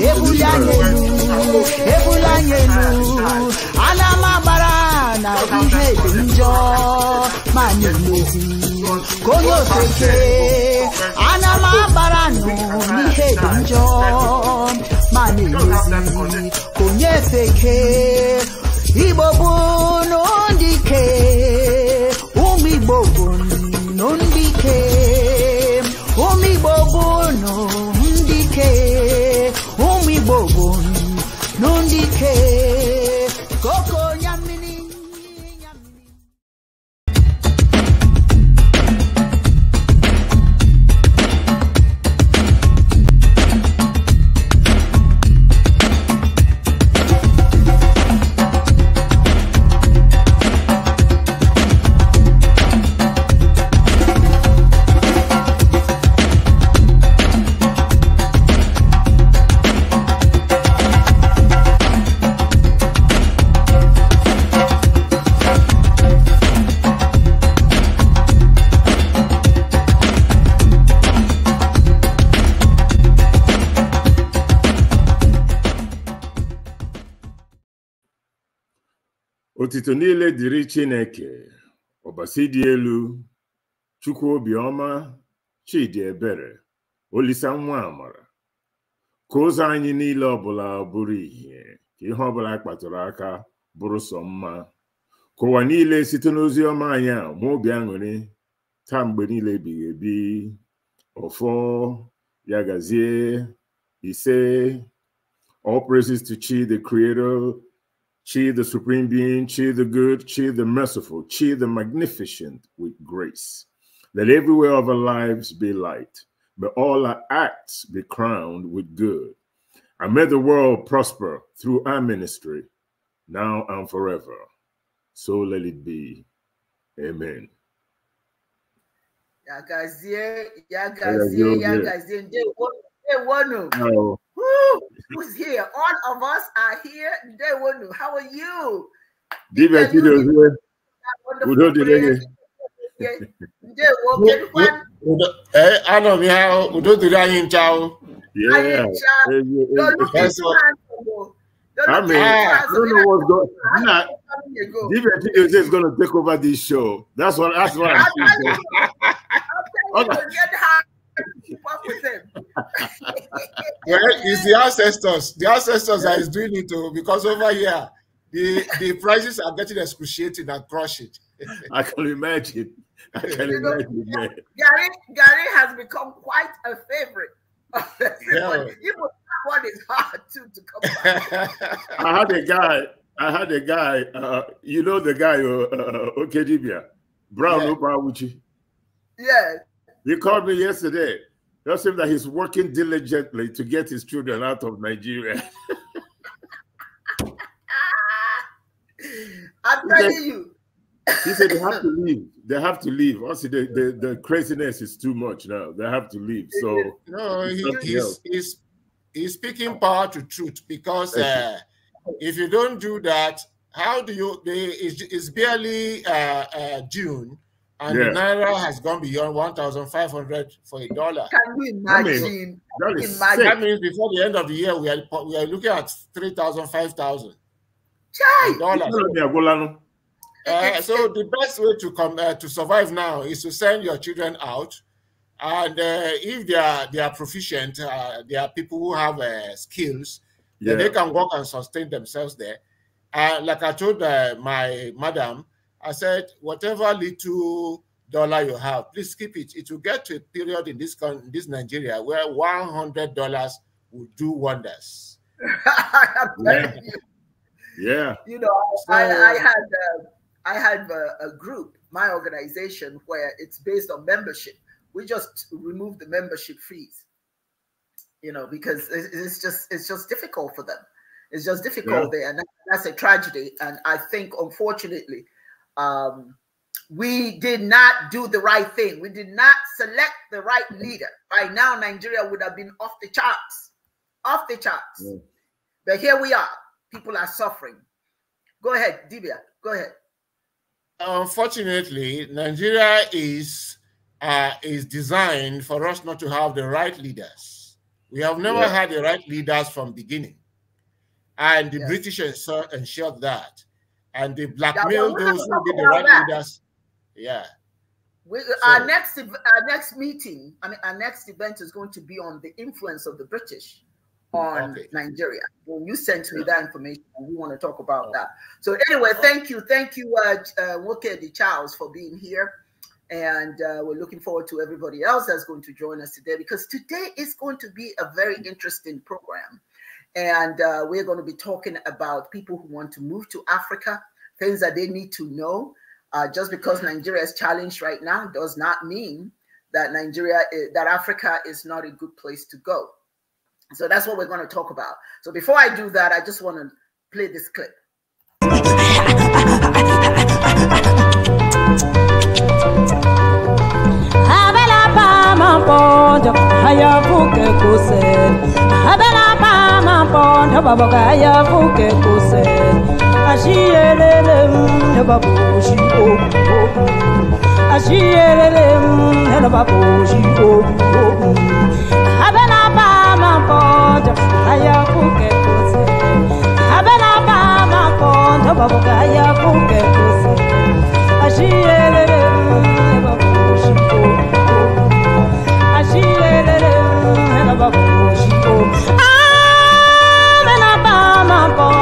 ebulanyelu ebulanyelu ana m agbara na ihe dị njọ ma na-emezi ka onye ofeke ana m agbara nụ n'ihe dị njọ ma na-emezi ka onye feke igbo bụ n'ụdị ike Otuto niile dịrị Chineke, ọbasi dị elu, Chukwu obiọma, Chidi ebere, Olisa nwa amara. Ka ụzọ anyị niile ọbụla bụrụ ihe ka ihe ọbụla kpatụrụ aka bụrụ sọ mma. Ka ụwa niile site n'ozi ọma anyị a ma obi aṅụrị taa mgbe niile ebighị ebi ọfọ ya gazie ise all praises to Chi the creator Chi, the supreme being, Chi, the good, Chi, the merciful, Chi, the magnificent, with grace. Let everywhere of our lives be light, May all our acts be crowned with good. And may the world prosper through our ministry, now and forever. So let it be. Amen. Yagazie, yagazie, yagazie. They Woo, who's here? All of us are here. They would know. How are you? Different videos here. Udo Hey, Eh, Adam, yeah, Udo Direge, ciao. Yeah. I mean, I don't know what's going on. Nah, different is going to take over this show. That's what. That's what I'm saying. well, it's the ancestors. The ancestors yeah. is doing it too, oh, because over here, the, the prices are getting excruciating and crushing. I can imagine. I can you imagine. Know, Gary, Gary has become quite a favorite. yeah. Even that one is hard too to come back. I had a guy. I had a guy. Uh, you know the guy, uh, uh, uh Okedibia, Brown yeah. Obawuchi. Yes. You called me yesterday. Tell him that he's working diligently to get his children out of Nigeria. I'm telling said, you. He said they have to leave. They have to leave. Also, the, the, the craziness is too much now. They have to leave. So no, he, he's, he's he's speaking power to truth because uh, if you don't do that, how do you? They, it's, it's barely uh, uh, June and yeah. the naira has gone beyond 1,500 for a dollar. Can you imagine? I mean, that, is imagine. that means before the end of the year, we are, we are looking at 3,000, 5,000 dollars. Uh, eh, so the best way to come uh, to survive now is to send your children out, and uh, if they are they are proficient, uh, they are people who have skills, yeah. they can work and sustain themselves there. Uh, like I told my madam, I said, whatever little dollar you have, please keep it. It will get to a period in this in this Nigeria where one hundred dollars will do wonders. yeah. You. yeah. You know, so, I, I, had uh, I had a, a group, my organization, where it's based on membership. We just remove the membership fees. You know, because it's just it's just difficult for them. It's just difficult yeah. there, and that's a tragedy. And I think, unfortunately, um, we did not do the right thing. We did not select the right leader. By now, Nigeria would have been off the charts, off the charts. But here we are. People are suffering. Go ahead, Divya. Go ahead. Unfortunately, Nigeria is uh, is designed for us not to have the right leaders. We have never yeah. had the right leaders from beginning, and the yes. British ensured that and they blackmail yeah, those who did the right that. leaders. Yeah. We, so, our next our next meeting, I mean, our next event is going to be on the influence of the British on okay. Nigeria. Well, you sent me yeah. that information, and we want to talk about oh. that. So anyway, oh. thank you, thank you, uh, uh, Wokedi Charles, for being here, and uh, we're looking forward to everybody else that's going to join us today because today is going to be a very mm. interesting program. And uh, we're going to be talking about people who want to move to Africa, things that they need to know. Uh, just because Nigeria is challenged right now does not mean that Nigeria, is, eh, that Africa is not a good place to go. So that's what we're going to talk about. So before I do that, I just want to play this clip. abẹ́là abẹ́là mpondo baboka yavuke kuse ashiyelele mndo babushi oku ashiyelele mndo ba ma abena bama mpondo ayavuke kuse abena bama mpondo baboka yavuke kuse ashiyelele mndo babushi oku ashiyelele mndo babushi o. Yes,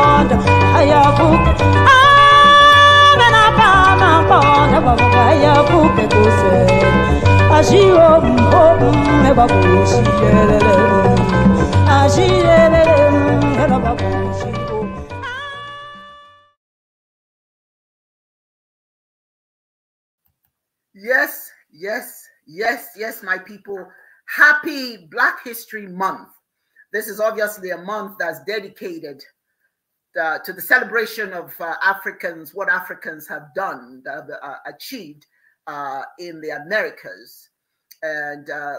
yes, yes, yes, my people. Happy Black History Month. This is obviously a month that's dedicated uh, to the celebration of uh, Africans, what Africans have done, uh, achieved uh, in the Americas. And uh,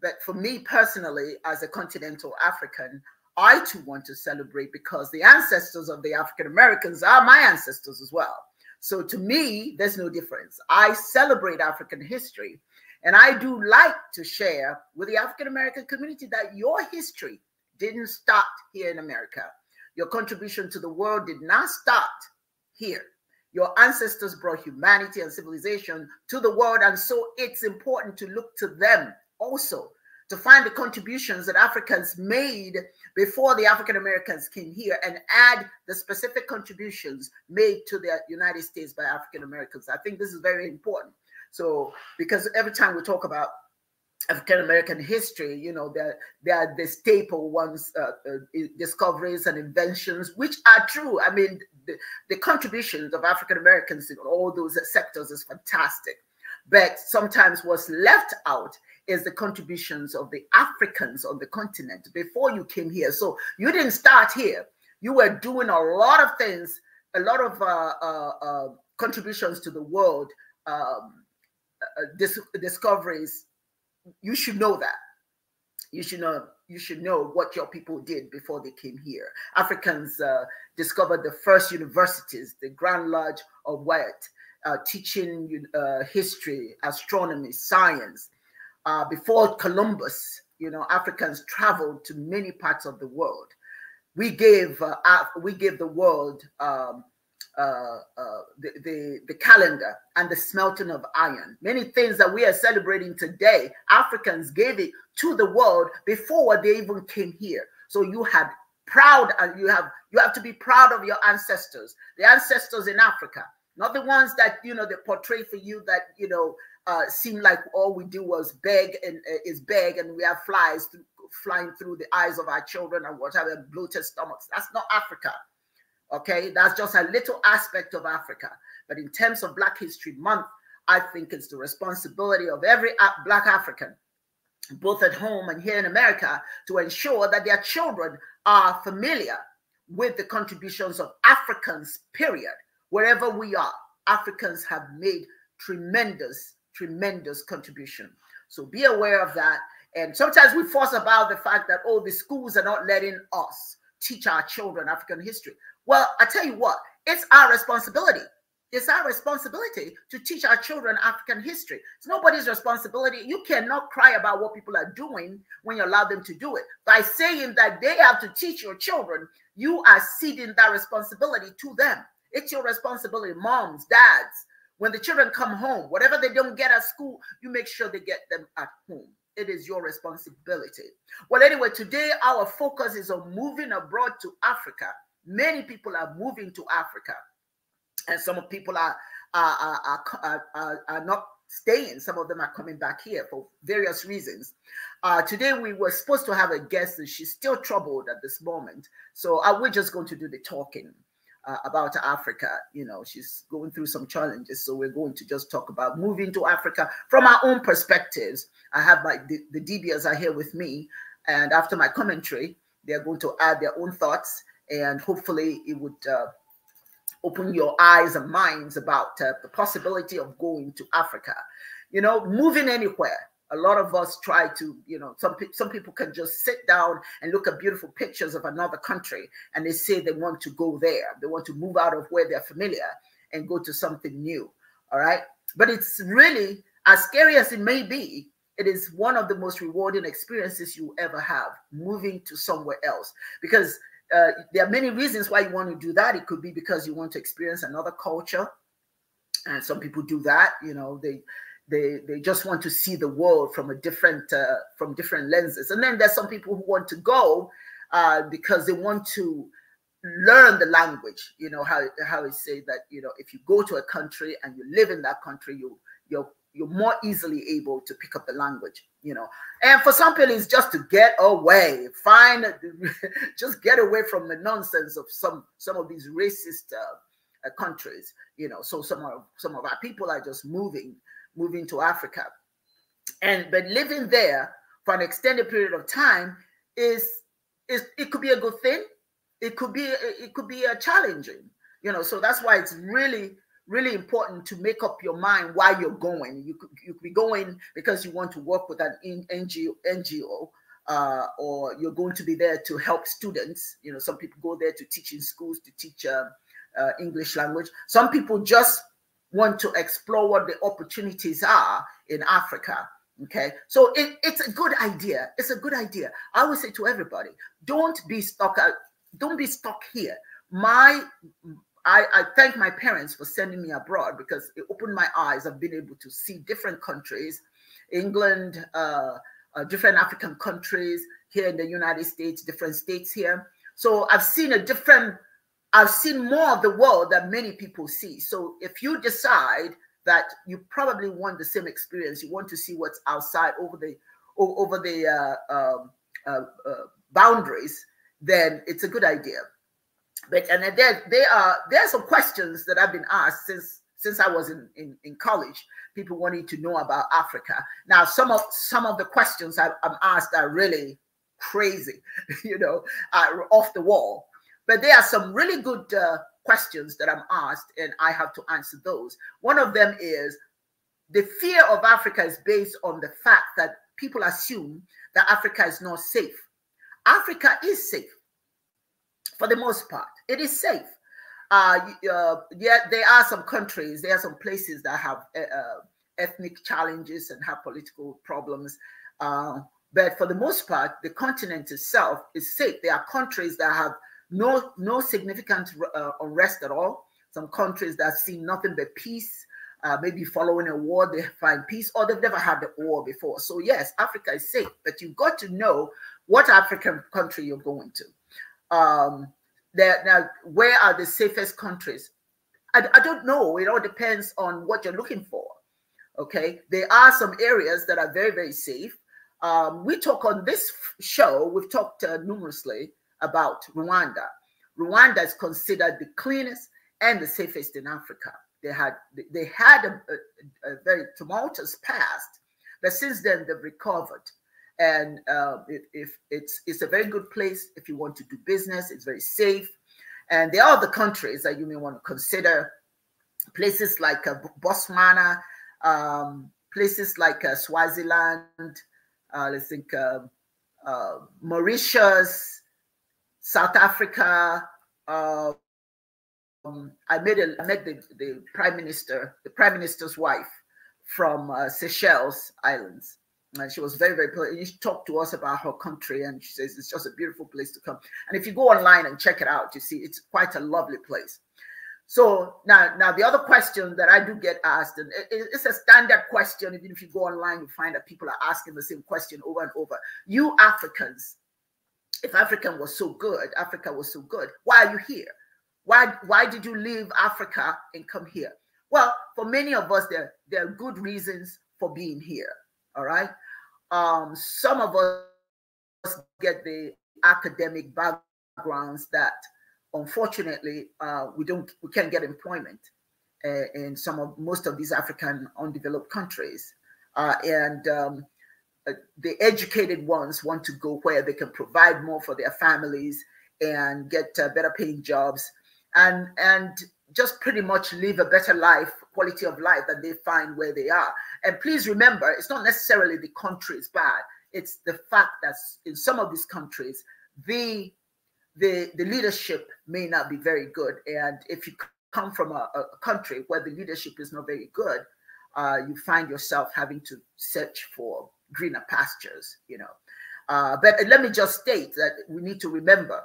but for me personally, as a continental African, I too want to celebrate because the ancestors of the African Americans are my ancestors as well. So to me, there's no difference. I celebrate African history. And I do like to share with the African American community that your history didn't start here in America your contribution to the world did not start here. Your ancestors brought humanity and civilization to the world, and so it's important to look to them also to find the contributions that Africans made before the African Americans came here and add the specific contributions made to the United States by African Americans. I think this is very important. So, because every time we talk about African American history, you know, they're, they're the staple ones, uh, uh, discoveries and inventions, which are true. I mean, the, the contributions of African Americans in all those sectors is fantastic. But sometimes what's left out is the contributions of the Africans on the continent before you came here. So you didn't start here. You were doing a lot of things, a lot of uh, uh, uh contributions to the world, um, uh, dis discoveries, you should know that. You should know you should know what your people did before they came here. Africans uh, discovered the first universities, the Grand Lodge of White, uh, teaching uh, history, astronomy, science. Uh, before Columbus, you know, Africans traveled to many parts of the world. We gave uh, we gave the world um, uh, uh, the, the, the calendar and the smelting of iron. Many things that we are celebrating today, Africans gave it to the world before they even came here. So you had proud and uh, you have you have to be proud of your ancestors, the ancestors in Africa, not the ones that you know they portray for you that you know uh, seem like all we do was beg and uh, is beg and we have flies through, flying through the eyes of our children and whatever bloated stomachs. That's not Africa. Okay, that's just a little aspect of Africa. But in terms of Black History Month, I think it's the responsibility of every Black African, both at home and here in America, to ensure that their children are familiar with the contributions of Africans, period. Wherever we are, Africans have made tremendous, tremendous contribution. So be aware of that. And sometimes we fuss about the fact that, oh, the schools are not letting us teach our children African history. Well, I tell you what, it's our responsibility. It's our responsibility to teach our children African history. It's nobody's responsibility. You cannot cry about what people are doing when you allow them to do it. By saying that they have to teach your children, you are ceding that responsibility to them. It's your responsibility, moms, dads. When the children come home, whatever they don't get at school, you make sure they get them at home. It is your responsibility. Well, anyway, today our focus is on moving abroad to Africa Many people are moving to Africa, and some people are are, are, are, are not staying. Some of them are coming back here for various reasons. Uh, today we were supposed to have a guest, and she's still troubled at this moment. So uh, we're just going to do the talking. Uh, about Africa. You know, she's going through some challenges. So we're going to just talk about moving to Africa from our own perspectives. I have my, the, the DBs are here with me. And after my commentary, they're going to add their own thoughts and hopefully it would uh, open your eyes and minds about uh, the possibility of going to Africa. You know, moving anywhere. A lot of us try to, you know, some pe some people can just sit down and look at beautiful pictures of another country, and they say they want to go there. They want to move out of where they're familiar and go to something new. All right, but it's really as scary as it may be. It is one of the most rewarding experiences you ever have moving to somewhere else because uh, there are many reasons why you want to do that. It could be because you want to experience another culture, and some people do that. You know, they they they just want to see the world from a different uh, from different lenses. And then there's some people who want to go uh, because they want to learn the language. You know how how it say that you know if you go to a country and you live in that country, you you're you're more easily able to pick up the language you know and for some people it's just to get away find just get away from the nonsense of some some of these racist uh, uh, countries you know so some of some of our people are just moving moving to africa and but living there for an extended period of time is is it could be a good thing it could be it could be a uh, challenging you know so that's why it's really really important to make up your mind why you're going. You could, you could be going because you want to work with an NGO, NGO uh, or you're going to be there to help students. You know, some people go there to teach in schools to teach uh, uh, English language. Some people just want to explore what the opportunities are in Africa. Okay, so it, it's a good idea. It's a good idea. I would say to everybody, don't be stuck. Out, don't be stuck here. My I, I, thank my parents for sending me abroad because it opened my eyes. I've been able to see different countries, England, uh, uh, different African countries here in the United States, different states here. So I've seen a different, I've seen more of the world that many people see. So if you decide that you probably want the same experience, you want to see what's outside over the over the uh, um, uh, uh, boundaries, then it's a good idea but and there they are there are some questions that I've been asked since since I was in, in, in college. People wanting to know about Africa. Now some of some of the questions I, am asked are really crazy, you know, are off the wall. But there are some really good uh, questions that I'm asked, and I have to answer those. One of them is the fear of Africa is based on the fact that people assume that Africa is not safe. Africa is safe for the most part. It is safe. Uh, uh, yeah, there are some countries, there are some places that have eh, uh, ethnic challenges and have political problems. Uh, but for the most part, the continent itself is safe. There are countries that have no no significant uh, unrest at all. Some countries that see nothing but peace. Uh, maybe following a war, they find peace, or they've never had a war before. So yes, Africa is safe, but you've got to know what African country you're going to um, that now, where are the safest countries? I, I don't know. It all depends on what you're looking for. Okay, there are some areas that are very, very safe. Um, we talk on this show, we've talked uh, numerously about Rwanda. Rwanda is considered the cleanest and the safest in Africa. They had they had a, a, a very tumultuous past, but since then they've recovered and uh, if it's it's a very good place if you want to do business it's very safe and there are other countries that you may want to consider places like uh, botswana um, places like uh, swaziland uh, let's think um, uh, mauritius south africa um, i made a, I met the, the prime minister the prime minister's wife from uh, seychelles islands and she was very, very polite. She talked to us about her country, and she says it's just a beautiful place to come. And if you go online and check it out, you see it's quite a lovely place. So now, now the other question that I do get asked, and it, it's a standard question. Even if you go online, you find that people are asking the same question over and over. You Africans, if African was so good, Africa was so good, why are you here? Why, why did you leave Africa and come here? Well, for many of us, there, there are good reasons for being here all right. Um, some of us get the academic backgrounds that unfortunately uh, we don't we can't get employment uh, in some of most of these African undeveloped countries. Uh, and um, uh, the educated ones want to go where they can provide more for their families and get uh, better paying jobs. And and just pretty much live a better life, quality of life that they find where they are. And please remember, it's not necessarily the country is bad. It's the fact that in some of these countries, the the the leadership may not be very good. And if you come from a, a country where the leadership is not very good, uh, you find yourself having to search for greener pastures. You know, uh, but let me just state that we need to remember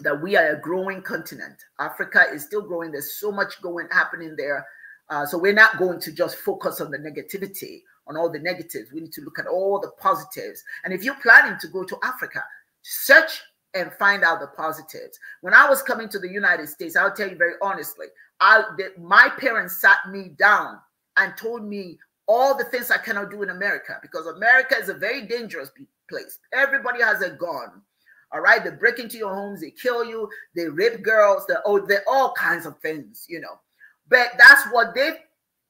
that we are a growing continent. Africa is still growing. There's so much going happening there. Uh, so we're not going to just focus on the negativity, on all the negatives. We need to look at all the positives. And if you're planning to go to Africa, search and find out the positives. When I was coming to the United States, I'll tell you very honestly, I the, my parents sat me down and told me all the things I cannot do in America because America is a very dangerous place. Everybody has a gun. All right, they break into your homes, they kill you, they rape girls, they they all kinds of things, you know. But that's what they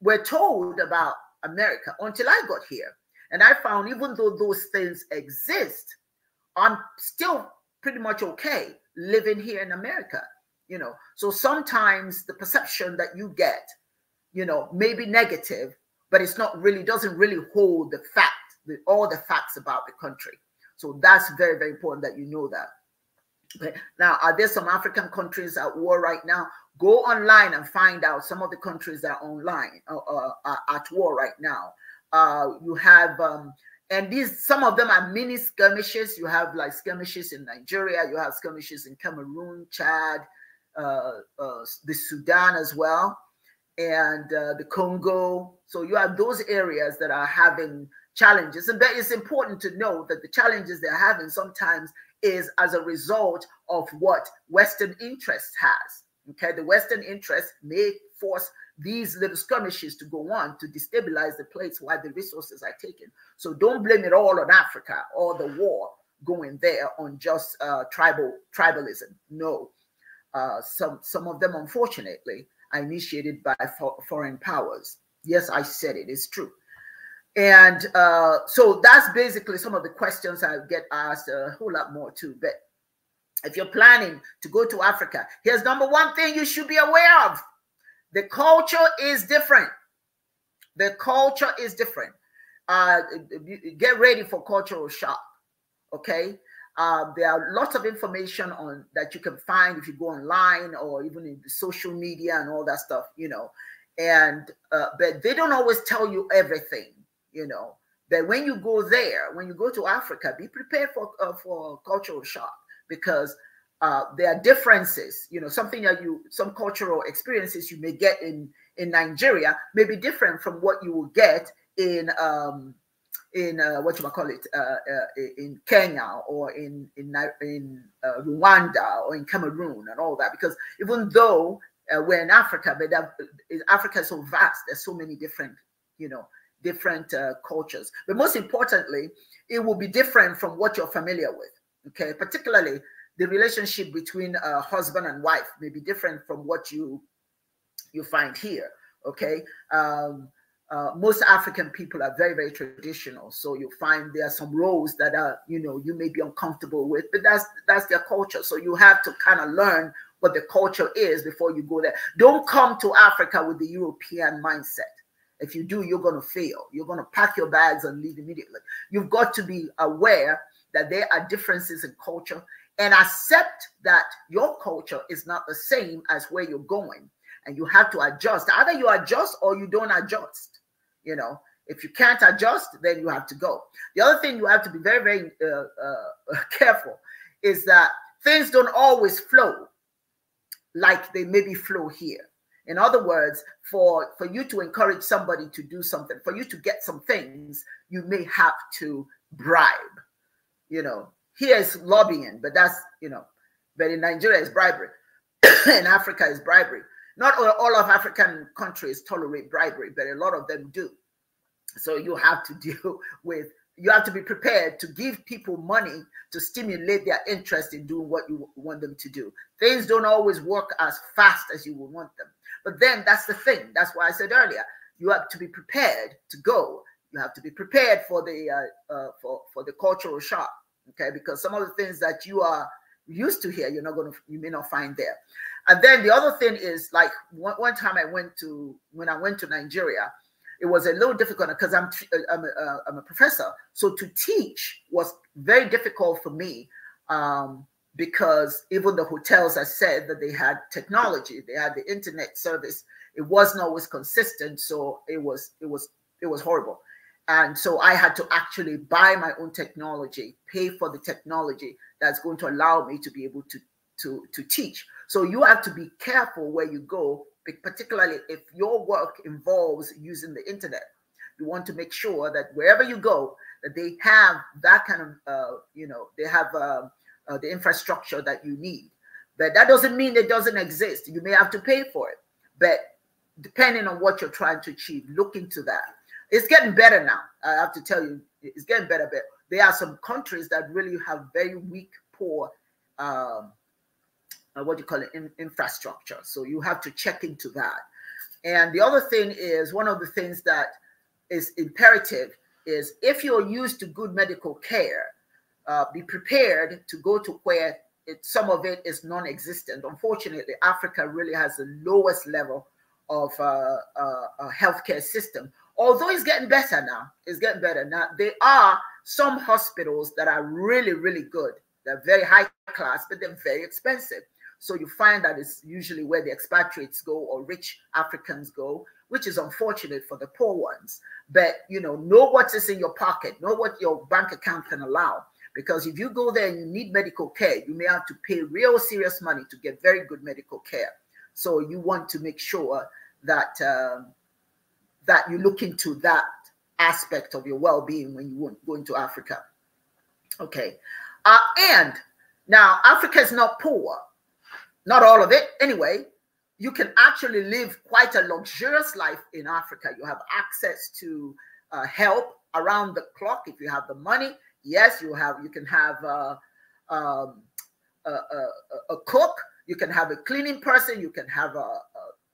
were told about America until I got here, and I found even though those things exist, I'm still pretty much okay living here in America, you know. So sometimes the perception that you get, you know, may be negative, but it's not really doesn't really hold the fact, the, all the facts about the country. So that's very, very important that you know that. Okay. Now, are there some African countries at war right now? Go online and find out some of the countries that are online uh, uh, uh at war right now. Uh, you have, um, and these some of them are mini skirmishes. You have like skirmishes in Nigeria. You have skirmishes in Cameroon, Chad, uh, uh, the Sudan as well, and the Congo. So you have those areas that are having challenges. And that it's important to know that the challenges they're having sometimes is as a result of what Western interest has. Okay, the Western interest may force these little skirmishes to go on to destabilize the place while the resources are taken. So don't blame it all on Africa or the war going there on just uh, tribal tribalism. No, uh, some some of them unfortunately are initiated by fo foreign powers. Yes, I said it. It's true and uh, so that's basically some of the questions I get asked uh, a whole lot more too. But if you're planning to go to Africa, here's number one thing you should be aware of. The culture is different. The culture is different. Uh, get ready for cultural shock. Okay. Uh, there are lots of information on that you can find if you go online or even in social media and all that stuff, you know. And uh, but they don't always tell you everything you know. That when you go there, when you go to Africa, be prepared for uh, for cultural shock because uh, there are differences. You know, something that you some cultural experiences you may get in in Nigeria may be different from what you will get in um, in uh, what you call it uh, uh, in Kenya or in in in uh, Rwanda or in Cameroon and all that. Because even though uh, we're in Africa, but that, uh, Africa is so vast, there's so many different you know different uh, cultures. But most importantly, it will be different from what you're familiar with. Okay, particularly the relationship between uh, husband and wife may be different from what you you find here. Okay, um, uh, most African people are very very traditional, so you find there are some roles that are you know you may be uncomfortable with, but that's that's their culture. So you have to kind of learn what the culture is before you go there. Don't come to Africa with the European mindset if you do, you're going to fail. You're going to pack your bags and leave immediately. You've got to be aware that there are differences in culture and accept that your culture is not the same as where you're going. And you have to adjust. Either you adjust or you don't adjust. You know, if you can't adjust, then you have to go. The other thing you have to be very, very uh, uh, careful is that things don't always flow like they maybe flow here. In other words, for, for you to encourage somebody to do something, for you to get some things, you may have to bribe. You know, here is lobbying, but that's, you know, but in Nigeria is bribery. in Africa is bribery. Not all, all of African countries tolerate bribery, but a lot of them do. So you have to deal with, you have to be prepared to give people money to stimulate their interest in doing what you want them to do. Things don't always work as fast as you would want them but then that's the thing. That's why I said earlier, you have to be prepared to go. You have to be prepared for the uh, uh, for for the cultural shock. Okay, because some of the things that you are used to here, you're not going to you may not find there. And then the other thing is like one, one time I went to when I went to Nigeria, it was a little difficult because I'm uh, I'm a, uh, I'm a professor, so to teach was very difficult for me. Um, because even the hotels I said that they had technology, they had the internet service. It wasn't always consistent, so it was it was it was horrible. And so I had to actually buy my own technology, pay for the technology that's going to allow me to be able to to to teach. So you have to be careful where you go, particularly if your work involves using the internet. You want to make sure that wherever you go, that they have that kind of uh, you know they have. Uh, uh, the infrastructure that you need. But that doesn't mean it doesn't exist. You may have to pay for it. But depending on what you're trying to achieve, look into that. It's getting better now. I have to tell you, it's getting better. But there are some countries that really have very weak, poor, um, uh, what do you call it, in, infrastructure. So you have to check into that. And the other thing is one of the things that is imperative is if you're used to good medical care, uh, be prepared to go to where it, some of it is non-existent. Unfortunately, Africa really has the lowest level of uh, uh, healthcare system. Although it's getting better now, it's getting better now. There are some hospitals that are really, really good. They're very high class, but they're very expensive. So you find that it's usually where the expatriates go or rich Africans go, which is unfortunate for the poor ones. But you know, know what is in your pocket, know what your bank account can allow, because if you go there and you need medical care, you may have to pay real serious money to get very good medical care. So you want to make sure that um, that you look into that aspect of your well-being when you go into Africa. Okay, uh, and now Africa is not poor, not all of it anyway. You can actually live quite a luxurious life in Africa. You have access to uh, help around the clock if you have the money Yes, you have. You can have a, uh, um, a, a, a cook. You can have a cleaning person. You can have a,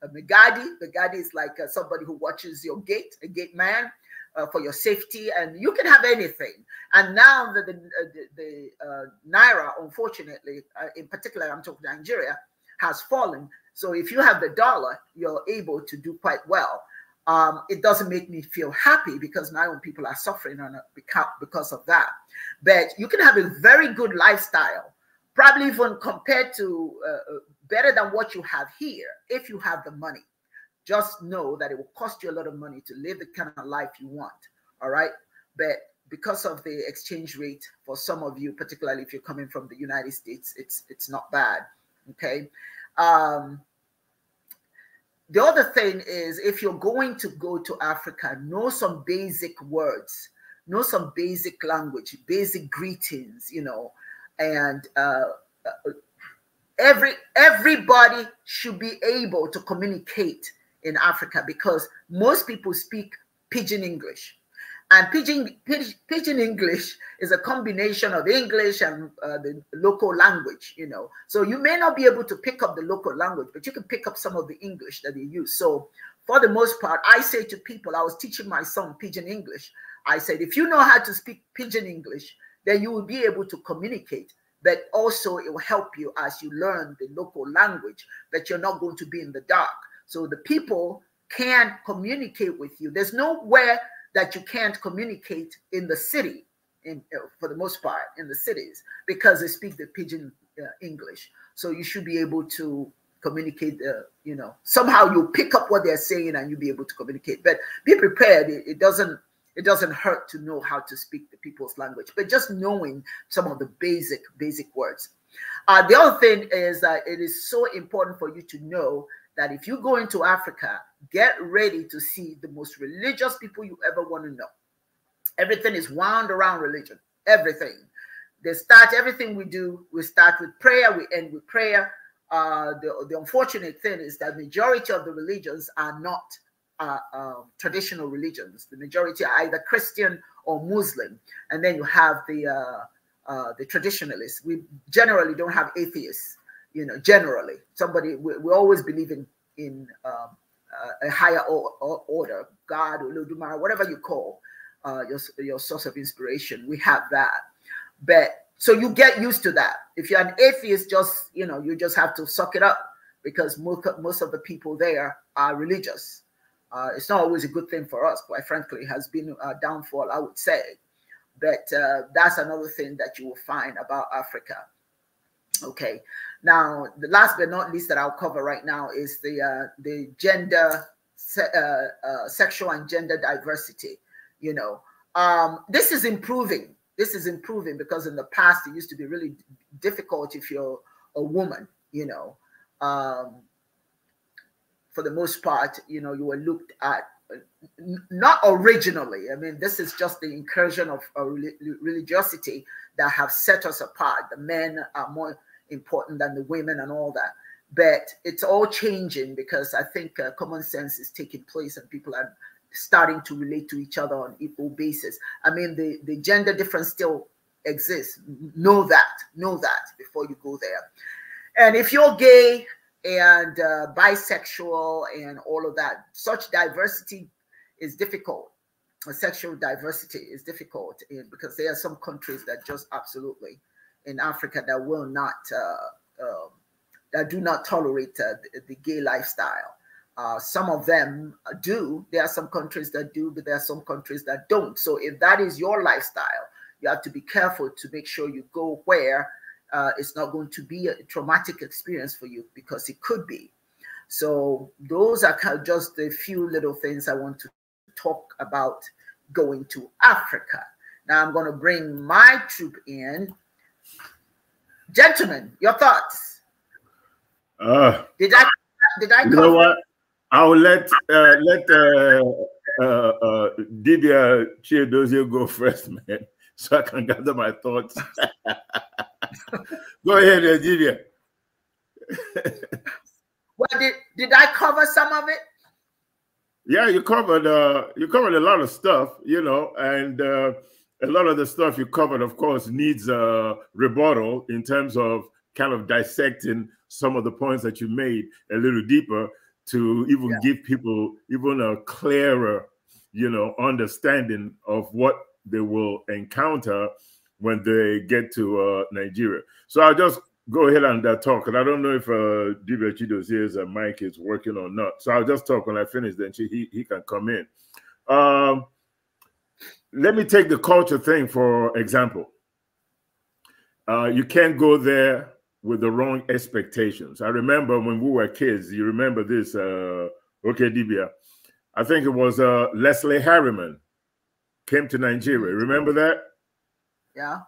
a megadi. Megadi is like uh, somebody who watches your gate, a gate man uh, for your safety, and you can have anything. And now that the, uh, the, the uh, naira, unfortunately, in particular, I'm talking Nigeria, has fallen. So if you have the dollar, you're able to do quite well um, it doesn't make me feel happy because my own people are suffering on because of that. But you can have a very good lifestyle, probably even compared to uh, uh, better than what you have here if you have the money. Just know that it will cost you a lot of money to live the kind of life you want. All right. But because of the exchange rate for some of you, particularly if you're coming from the United States, it's it's not bad. Okay. Um, the other thing is if you're going to go to Africa, know some basic words, know some basic language, basic greetings, you know, and uh, uh every everybody should be able to communicate in Africa because most people speak pidgin English. And pidgin, pidgin English is a combination of English and uh, the local language, you know. So you may not be able to pick up the local language, but you can pick up some of the English that they use. So for the most part, I say to people, I was teaching my son pidgin English. I said, if you know how to speak pidgin English, then you will be able to communicate. But also it will help you as you learn the local language that you're not going to be in the dark. So the people can communicate with you. There's nowhere that you can't communicate in the city, in, uh, for the most part, in the cities, because they speak the pidgin uh, English. So you should be able to communicate, The uh, you know, somehow you pick up what they're saying and you'll be able to communicate. But be prepared. It, it doesn't it doesn't hurt to know how to speak the people's language, but just knowing some of the basic, basic words. Uh, the other thing is that it is so important for you to know that if you go into Africa, get ready to see the most religious people you ever want to know. Everything is wound around religion. Everything. They start everything we do. We start with prayer. We end with prayer. Uh, the, the unfortunate thing is that majority of the religions are not uh, uh, traditional religions. The majority are either Christian or Muslim, and then you have the uh, uh, the traditionalists. We generally don't have atheists you know, generally, somebody we, we always believe in in um, uh, a higher or, or order, God, Olodumare, whatever you call uh, your your source of inspiration. We have that, but so you get used to that. If you're an atheist, just you know, you just have to suck it up because most most of the people there are religious. Uh, it's not always a good thing for us, quite frankly. It has been a downfall, I would say. But uh, that's another thing that you will find about Africa Okay. Now, the last but not least that I'll cover right now is the uh, the gender, se uh, uh, sexual and gender diversity. You know, um, this is improving. This is improving because in the past it used to be really difficult if you're a woman. You know, um, for the most part, you know, you were looked at not originally. I mean, this is just the incursion of religiosity that have set us apart. The men are more important than the women and all that. But it's all changing because I think uh, common sense is taking place and people are starting to relate to each other on equal basis. I mean, the, the gender difference still exists. Know that, know that before you go there. And if you're gay and uh, bisexual and all of that, such diversity is difficult. Sexual diversity is difficult because there are some countries that just absolutely in Africa that will not uh, um, that do not tolerate uh, the, the, gay lifestyle. Uh, some of them do. There are some countries that do, but there are some countries that don't. So if that is your lifestyle, you have to be careful to make sure you go where uh, it's not going to be a traumatic experience for you because it could be. So those are kind of just a few little things I want to talk about going to Africa. Now I'm going to bring my troop in Gentlemen, your thoughts. Uh, did I did I you know what? I'll let uh, let uh, uh, uh, Didier Chiadozie go first, man, so I can gather my thoughts. go ahead, uh, Didier. well, did, did I cover some of it? Yeah, you covered uh, you covered a lot of stuff, you know, and uh, a lot of the stuff you covered, of course, needs a rebuttal in terms of kind of dissecting some of the points that you made a little deeper to even yeah. give people even a clearer, you know, understanding of what they will encounter when they get to uh, Nigeria. So I'll just go ahead and uh, talk, and I don't know if uh, Dibia Chido's ears uh, and mic is working or not. So I'll just talk when I finish, then she, he, he can come in. Um, let me take the culture thing for example. Uh, you can't go there with the wrong expectations. I remember when we were kids, you remember this, uh, okay, Dibia. I think it was uh, Leslie Harriman came to Nigeria. Remember that? Yeah.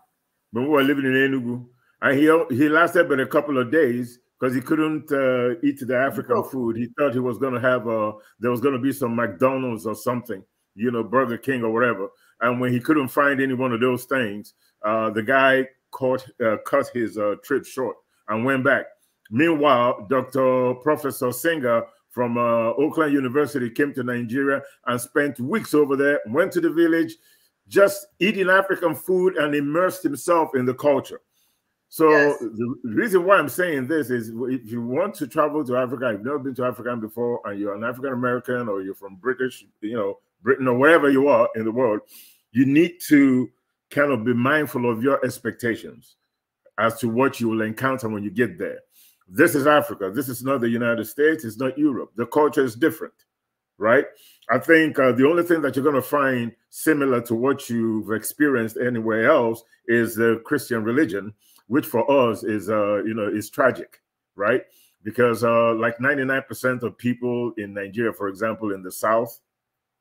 When we were living in Enugu. And he, he lasted but a couple of days because he couldn't uh, eat the African food. He thought he was going to have, a, uh, there was going to be some McDonald's or something, you know, Burger King or whatever. And when he couldn't find any one of those things, uh, the guy caught, uh, cut his uh, trip short and went back. Meanwhile, Dr. Professor Singer from uh, Oakland University came to Nigeria and spent weeks over there, went to the village, just eating African food and immersed himself in the culture. So yes. the reason why I'm saying this is if you want to travel to Africa, you've never been to Africa before, and you're an African American or you're from British, you know, Britain or wherever you are in the world, you need to kind of be mindful of your expectations as to what you will encounter when you get there. This is Africa. This is not the United States. It's not Europe. The culture is different, right? I think uh, the only thing that you're going to find similar to what you've experienced anywhere else is the Christian religion, which for us is, uh, you know, is tragic, right? Because uh, like 99% of people in Nigeria, for example, in the South,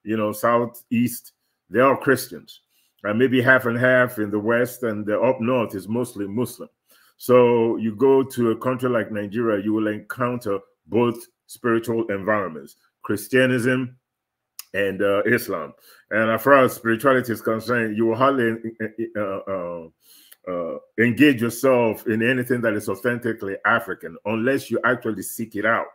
you know, southeast, they're all Christians. And maybe half and half in the west and the up north is mostly Muslim. So you go to a country like Nigeria, you will encounter both spiritual environments, Christianism and uh, Islam. And as far as spirituality is concerned, you will hardly uh, uh, uh, uh engage yourself in anything that is authentically African unless you actually seek it out,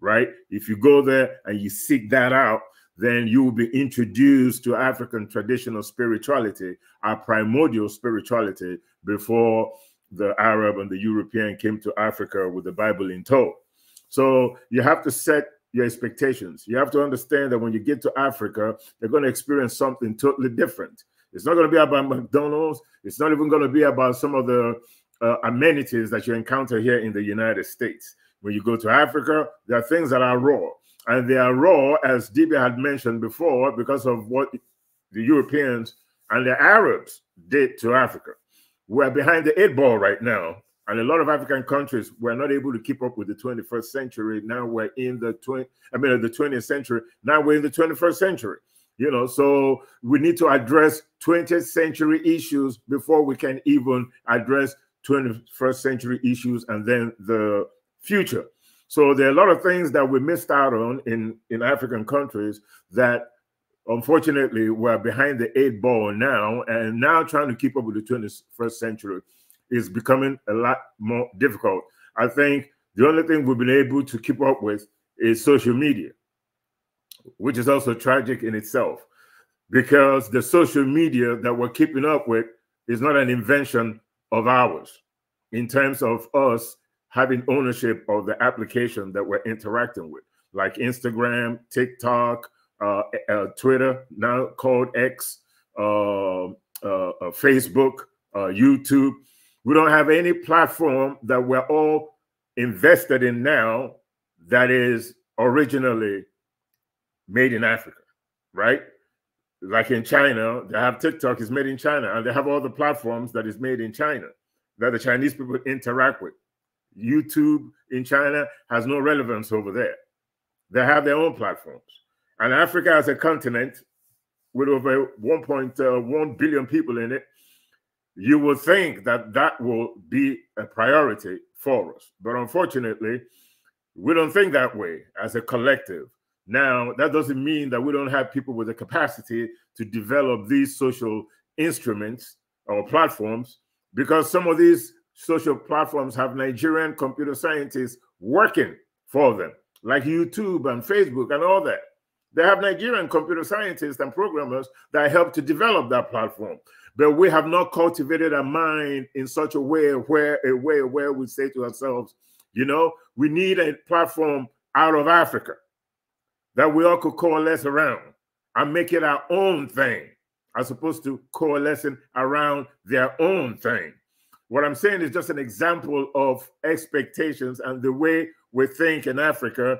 right? If you go there and you seek that out, then you will be introduced to African traditional spirituality, our primordial spirituality, before the Arab and the European came to Africa with the Bible in tow. So you have to set your expectations. You have to understand that when you get to Africa, they're going to experience something totally different. It's not going to be about McDonald's. It's not even going to be about some of the uh, amenities that you encounter here in the United States. When you go to Africa, there are things that are raw and they are raw, as DB had mentioned before, because of what the Europeans and the Arabs did to Africa. We're behind the eight ball right now, and a lot of African countries were not able to keep up with the 21st century. Now we're in the 20, I mean, the 20th century. Now we're in the 21st century. You know, so we need to address 20th century issues before we can even address 21st century issues and then the future. So there are a lot of things that we missed out on in, in African countries that unfortunately we're behind the eight ball now. And now trying to keep up with the 21st century is becoming a lot more difficult. I think the only thing we've been able to keep up with is social media, which is also tragic in itself because the social media that we're keeping up with is not an invention of ours in terms of us having ownership of the application that we're interacting with, like Instagram, TikTok, uh, uh, Twitter, now called X, um, uh, uh, Facebook, uh, YouTube. We don't have any platform that we're all invested in now that is originally made in Africa, right? Like in China, they have TikTok is made in China, and they have all the platforms that is made in China that the Chinese people interact with. YouTube in China has no relevance over there. They have their own platforms. And Africa as a continent with over 1.1 billion people in it, you would think that that will be a priority for us. But unfortunately, we don't think that way as a collective. Now, that doesn't mean that we don't have people with the capacity to develop these social instruments or platforms because some of these social platforms have Nigerian computer scientists working for them, like YouTube and Facebook and all that. They have Nigerian computer scientists and programmers that help to develop that platform. But we have not cultivated a mind in such a way where a way where we say to ourselves, you know, we need a platform out of Africa that we all could coalesce around and make it our own thing, as opposed to coalescing around their own thing. What I'm saying is just an example of expectations and the way we think in Africa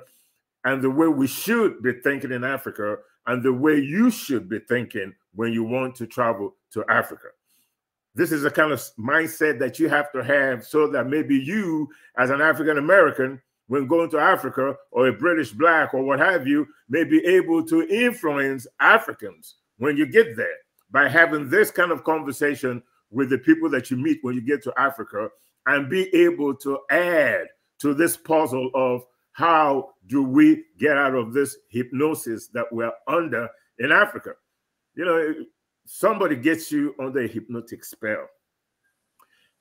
and the way we should be thinking in Africa and the way you should be thinking when you want to travel to Africa. This is the kind of mindset that you have to have so that maybe you, as an African American, when going to Africa or a British black or what have you, may be able to influence Africans when you get there by having this kind of conversation with the people that you meet when you get to Africa and be able to add to this puzzle of how do we get out of this hypnosis that we're under in Africa. You know, somebody gets you under a hypnotic spell.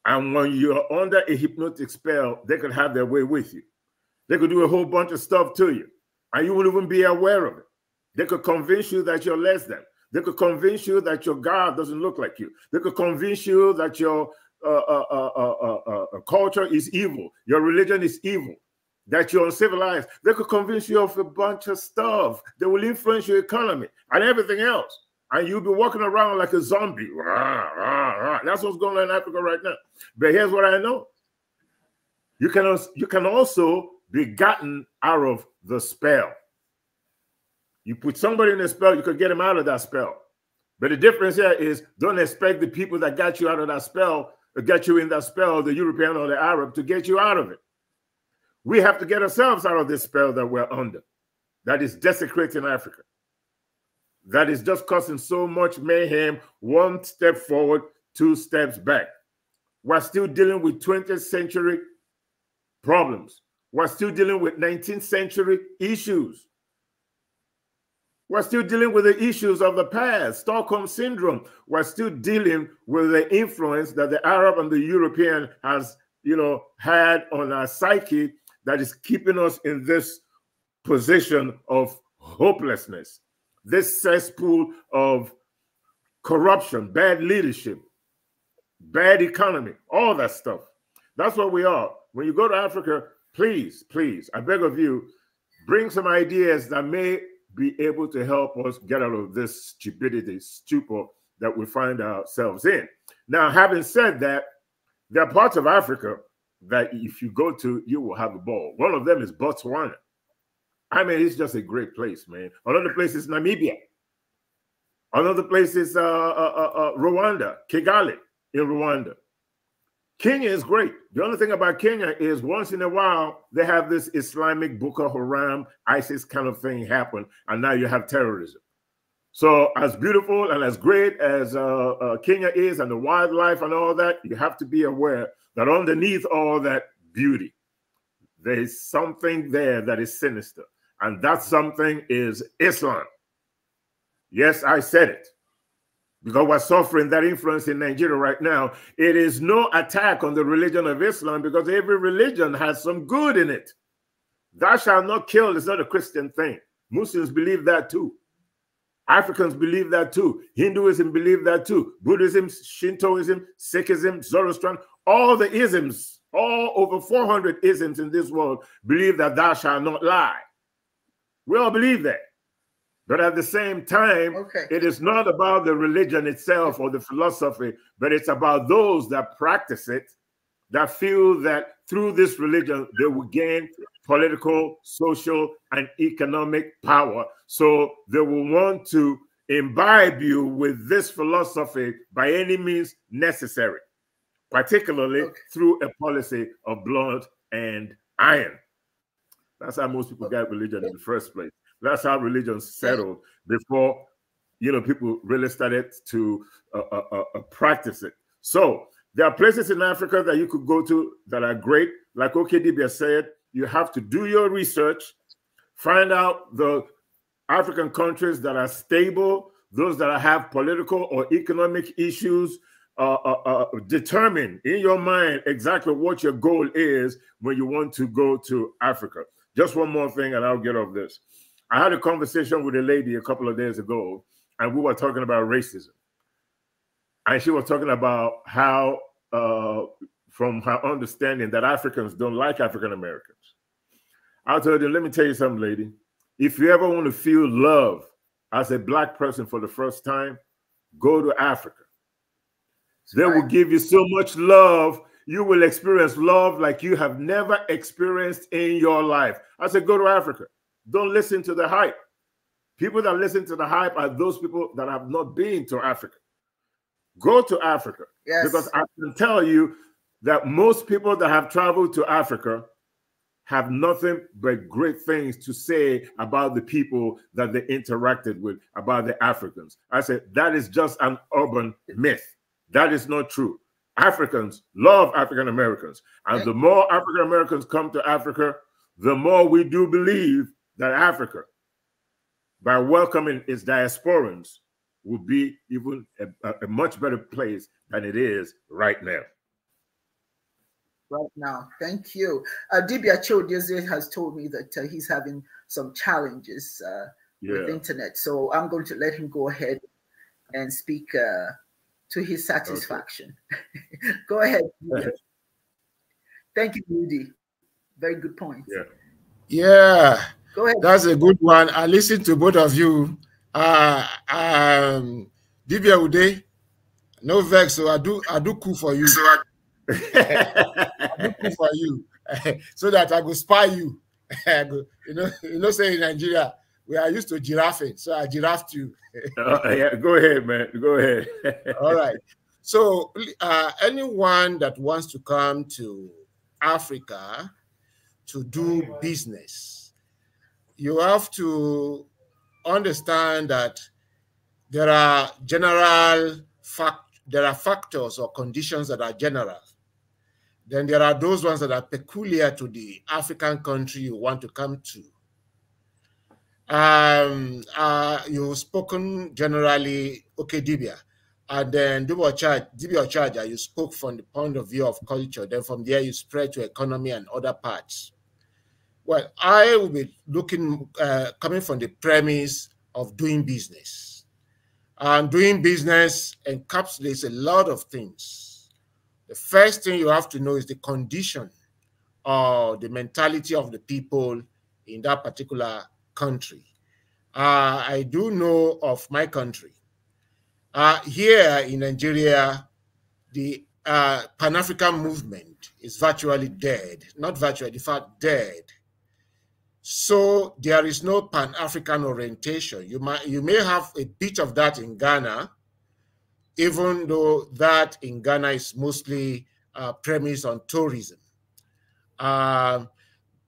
And when you're under a hypnotic spell, they could have their way with you. They could do a whole bunch of stuff to you, and you wouldn't even be aware of it. They could convince you that you're less than. They could convince you that your God doesn't look like you. They could convince you that your uh uh uh, uh, uh, uh, culture is evil, your religion is evil, that you're uncivilized. They could convince you of a bunch of stuff. They will influence your economy and everything else. And you'll be walking around like a zombie. Rah, rah, rah. That's what's going on in Africa right now. But here's what I know. You can, you can also be gotten out of the spell. You put somebody in a spell, you could get them out of that spell. But the difference here is don't expect the people that got you out of that spell, or got you in that spell, the European or the Arab, to get you out of it. We have to get ourselves out of this spell that we're under, that is desecrating Africa, that is just causing so much mayhem, one step forward, two steps back. We're still dealing with 20th century problems. We're still dealing with 19th century issues. We're still dealing with the issues of the past, Stockholm syndrome. We're still dealing with the influence that the Arab and the European has, you know, had on our psyche that is keeping us in this position of hopelessness, this cesspool of corruption, bad leadership, bad economy, all that stuff. That's what we are. When you go to Africa, please, please, I beg of you, bring some ideas that may be able to help us get out of this stupidity, stupor that we find ourselves in. Now, having said that, there are parts of Africa that if you go to, you will have a ball. One of them is Botswana. I mean, it's just a great place, man. Another place is Namibia. Another place is uh, uh, uh, uh Rwanda, Kigali in Rwanda. Kenya is great. The only thing about Kenya is once in a while they have this Islamic Boko Haram, ISIS kind of thing happen, and now you have terrorism. So, as beautiful and as great as uh, uh, Kenya is, and the wildlife and all that, you have to be aware that underneath all that beauty, there is something there that is sinister, and that something is Islam. Yes, I said it because we're suffering that influence in Nigeria right now. It is no attack on the religion of Islam because every religion has some good in it. Thou shalt not kill is not a Christian thing. Muslims believe that too. Africans believe that too. Hinduism believe that too. Buddhism, Shintoism, Sikhism, Zoroastrian, all the isms, all over 400 isms in this world believe that thou shalt not lie. We all believe that. But at the same time, okay. it is not about the religion itself or the philosophy, but it's about those that practice it that feel that through this religion they will gain political, social, and economic power. So they will want to imbibe you with this philosophy by any means necessary, particularly okay. through a policy of blood and iron. That's how most people got religion in the first place. That's how religion settled before you know people really started to uh, uh, uh, uh, practice it. So there are places in Africa that you could go to that are great. Like OKDB said, you have to do your research, find out the African countries that are stable, those that have political or economic issues. Uh, uh, uh, determine in your mind exactly what your goal is when you want to go to Africa. Just one more thing, and I'll get off this. I had a conversation with a lady a couple of days ago, and we were talking about racism. And she was talking about how, uh, from her understanding, that Africans don't like African Americans. I told her, let me tell you something, lady. If you ever want to feel love as a black person for the first time, go to Africa. They will give you so much love. You will experience love like you have never experienced in your life. I said, go to Africa. Don't listen to the hype. People that listen to the hype are those people that have not been to Africa. Go to Africa. Yes. Because I can tell you that most people that have traveled to Africa have nothing but great things to say about the people that they interacted with, about the Africans. I said, that is just an urban myth. That is not true. Africans love African Americans. And the more African Americans come to Africa, the more we do believe that Africa, by welcoming its diasporans, will be even a, a much better place than it is right now right now. Thank you. Uh, Dibia has told me that uh, he's having some challenges uh, yeah. with internet. So I'm going to let him go ahead and speak uh, to his satisfaction. Okay. go ahead. Thank you, Rudy. Very good point. Yeah. Yeah. Go ahead. That's a good one. I listen to both of you. Uh, um, Divya Uday, no vex. So I do, I do cool for you. So I, I do cool for you, so that I go spy you. go, you know, you know, say in Nigeria we are used to giraffing, so I giraffed you. uh, yeah, go ahead, man. Go ahead. All right. So, uh, anyone that wants to come to Africa to do business you have to understand that there are general fact there are factors or conditions that are general then there are those ones that are peculiar to the african country you want to come to um, uh, you've spoken generally okay dibia and then dibia charger you spoke from the point of view of culture then from there you spread to economy and other parts well, I will be looking, uh, coming from the premise of doing business. And doing business encapsulates a lot of things. The first thing you have to know is the condition or the mentality of the people in that particular country. Uh, I do know of my country. Uh, here in Nigeria, the uh, Pan African movement is virtually dead. Not virtually, in fact, dead. So there is no Pan-African orientation. You might you may have a bit of that in Ghana, even though that in Ghana is mostly uh, premised on tourism. Uh,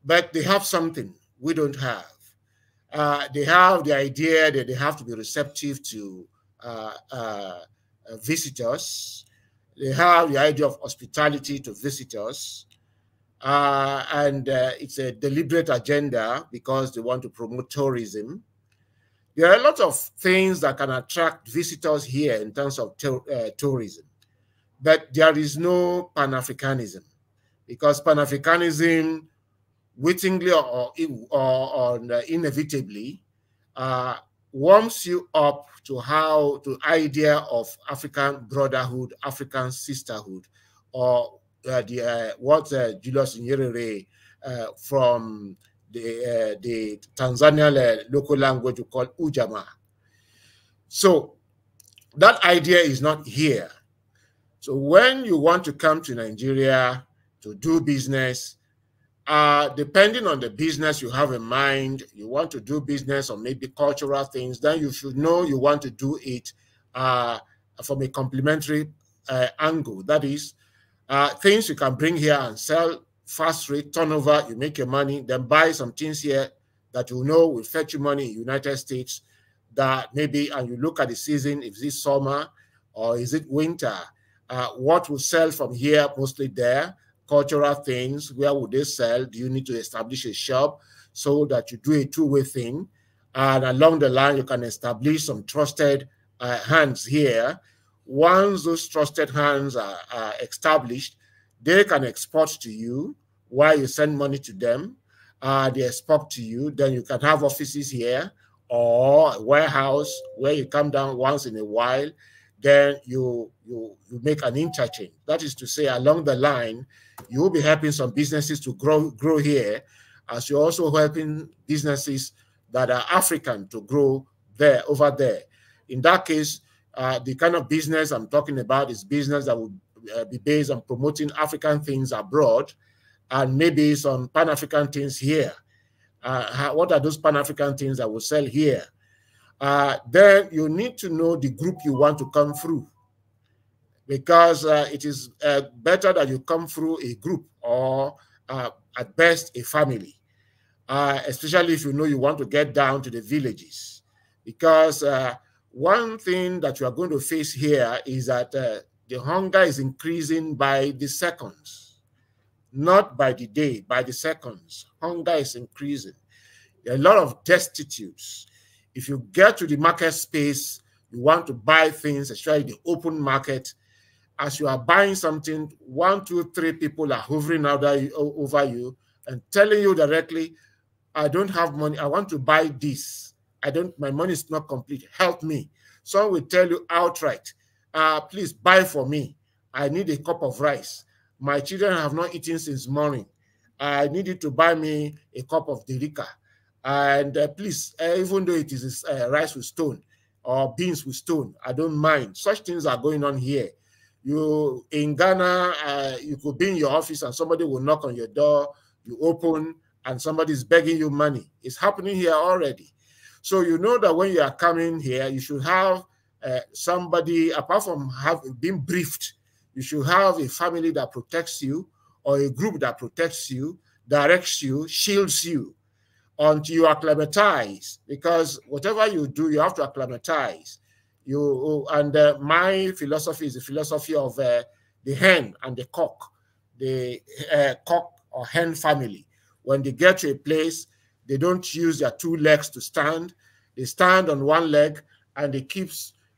but they have something we don't have. Uh, they have the idea that they have to be receptive to uh, uh, visitors. They have the idea of hospitality to visitors. Uh, and uh, it's a deliberate agenda because they want to promote tourism. There are a lot of things that can attract visitors here in terms of uh, tourism, but there is no Pan Africanism because Pan Africanism, wittingly or, or, or uh, inevitably, uh, warms you up to how to idea of African brotherhood, African sisterhood, or the, what uh, Julius Nyerere uh, from the uh, the Tanzanian local language called call So that idea is not here. So when you want to come to Nigeria to do business, uh, depending on the business you have in mind, you want to do business or maybe cultural things, then you should know you want to do it uh, from a complementary uh, angle. That is, uh, things you can bring here and sell fast rate turnover. You make your money, then buy some things here that you know will fetch you money in United States. That maybe and you look at the season. If this summer or is it winter? Uh, what will sell from here? Mostly there cultural things. Where would they sell? Do you need to establish a shop so that you do a two-way thing? And along the line, you can establish some trusted uh, hands here once those trusted hands are, are established, they can export to you while you send money to them. Uh, they export to you. Then you can have offices here or warehouse where you come down once in a while. Then you, you, you make an interchange. That is to say, along the line, you will be helping some businesses to grow, grow here as you're also helping businesses that are African to grow there, over there. In that case, uh, the kind of business I'm talking about is business that would uh, be based on promoting African things abroad and maybe some Pan African things here. Uh, what are those Pan African things that will sell here? Uh, then you need to know the group you want to come through because uh, it is better that you come through a group or at best a family, especially if you know you want to get down to the villages because one thing that you are going to face here is that uh, the hunger is increasing by the seconds, not by the day, by the seconds. Hunger is increasing. a lot of destitutes. If you get to the market space, you want to buy things, especially the open market. As you are buying something, one, two, three people are hovering over you and telling you directly, I don't have money, I want to buy this I don't, my money is not complete. Help me. Some will tell you outright, uh, please buy for me. I need a cup of rice. My children have not eaten since morning. I need you to buy me a cup of derika. And uh, please, uh, even though it is uh, rice with stone or beans with stone, I don't mind. Such things are going on here. You in Ghana, uh, you could be in your office and somebody will knock on your door. You open and somebody is begging you money. It's happening here already. So you know that when you are coming here, you should have uh, somebody, apart from having been briefed, you should have a family that protects you or a group that protects you, directs you, shields you until you acclimatize. Because whatever you do, you have to acclimatize. You and uh, my philosophy is the philosophy of uh, the hen and the cock, the uh, cock or hen family. When they get to a place, they don't use their two legs to stand. They stand on one leg and they keep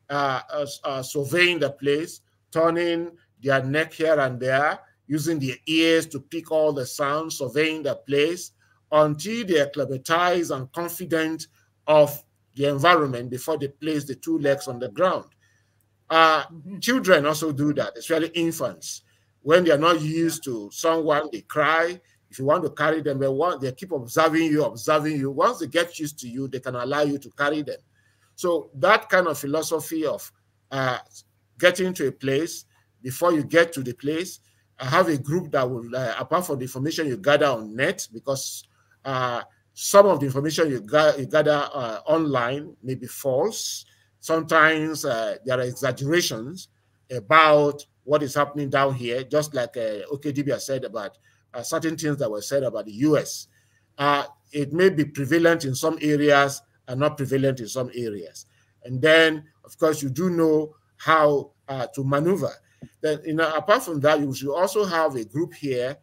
uh, uh, uh, surveying the place, turning their neck here and there, using their ears to pick all the sounds, surveying the place until they are and confident of the environment before they place the two legs on the ground. Uh, mm-hmm. Children also do that, especially infants. When they are not used to someone, they cry, if you want to carry them, they want they keep observing you, observing you. Once they get used to you, they can allow you to carry them. So that kind of philosophy of uh, getting to a place before you get to the place, I have a group that will, uh, apart from the information you gather on net, because uh, some of the information you, you gather uh, online may be false. Sometimes uh, there are exaggerations about what is happening down here, just like uh, OKDB has said about uh, certain things that were said about the U.S. Uh, it may be prevalent in some areas and not prevalent in some areas. And then, of course, you do know how uh, to maneuver. Then, you know, apart from that, you should also have a group here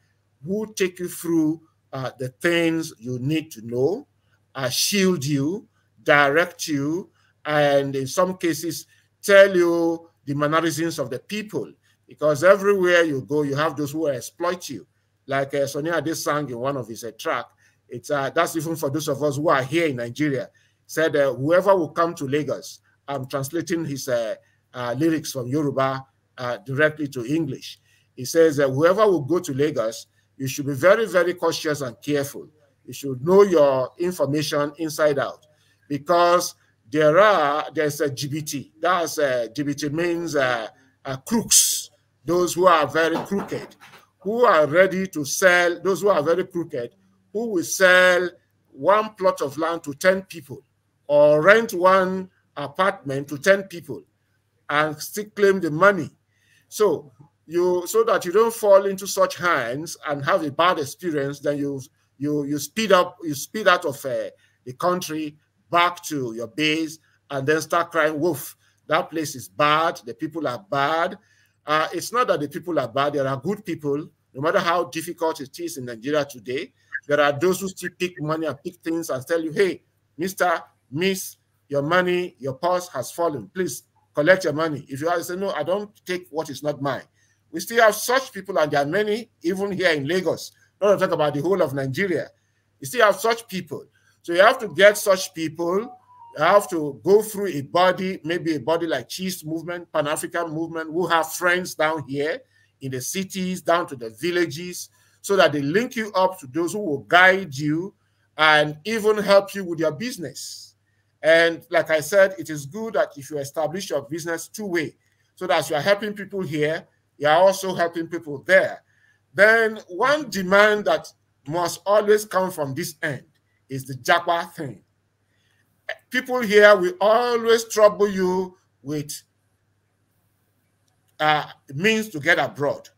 who take you through uh, the things you need to know, uh, shield you, direct you, and in some cases, tell you the mannerisms of the people because everywhere you go, you have those who exploit you. Like uh, Sonia did sang in one of his uh, track. It's uh, that's even for those of us who are here in Nigeria. Said uh, whoever will come to Lagos, I'm translating his uh, uh, lyrics from Yoruba uh, directly to English. He says that whoever will go to Lagos, you should be very, very cautious and careful. You should know your information inside out, because there are there's a GBT. That's a, GBT means crooks, those who are very crooked who are ready to sell, those who are very crooked, who will sell one plot of land to 10 people or rent one apartment to 10 people and still claim the money. So you so that you don't fall into such hands and have a bad experience, then you you you speed up, you speed out of uh, the country back to your base and then start crying wolf. That place is bad, the people are bad, uh, it's not that the people are bad. There are good people. No matter how difficult it is in Nigeria today, there are those who still pick money and pick things and tell you, hey, Mr. Miss, your money, your purse has fallen. Please collect your money. If you have say, no, I don't take what is not mine. We still have such people, and there are many even here in Lagos. Not to talk about the whole of Nigeria. You still have such people. So you have to get such people I have to go through a body, maybe a body like Cheese Movement, Pan African Movement, who have friends down here in the cities, down to the villages, so that they link you up to those who will guide you and even help you with your business. And like I said, it is good that if you establish your business two way, so that you are helping people here, you are also helping people there. Then one demand that must always come from this end is the Jaguar thing people here will always trouble you with uh, means to get abroad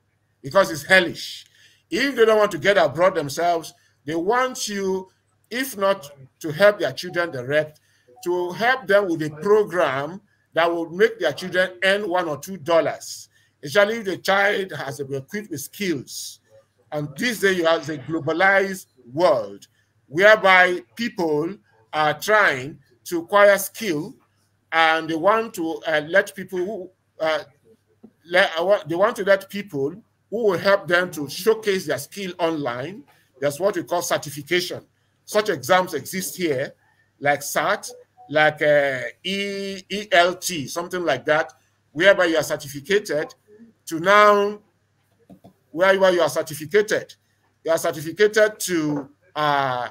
because it's hellish. If they don't want to get abroad themselves, they want you, if not to help their children direct, to help them with a program that will make their children earn one or two dollars, especially if the child has been equipped with skills. And this day you have a globalized world whereby people are trying to acquire skill and they want to uh, let people who uh, let, uh, they want to let people who will help them to showcase their skill online. That's what we call certification. Such exams exist here, like SAT, like uh, e, ELT, something like that, whereby you are certificated to now, wherever you are certificated, you are certificated to, uh,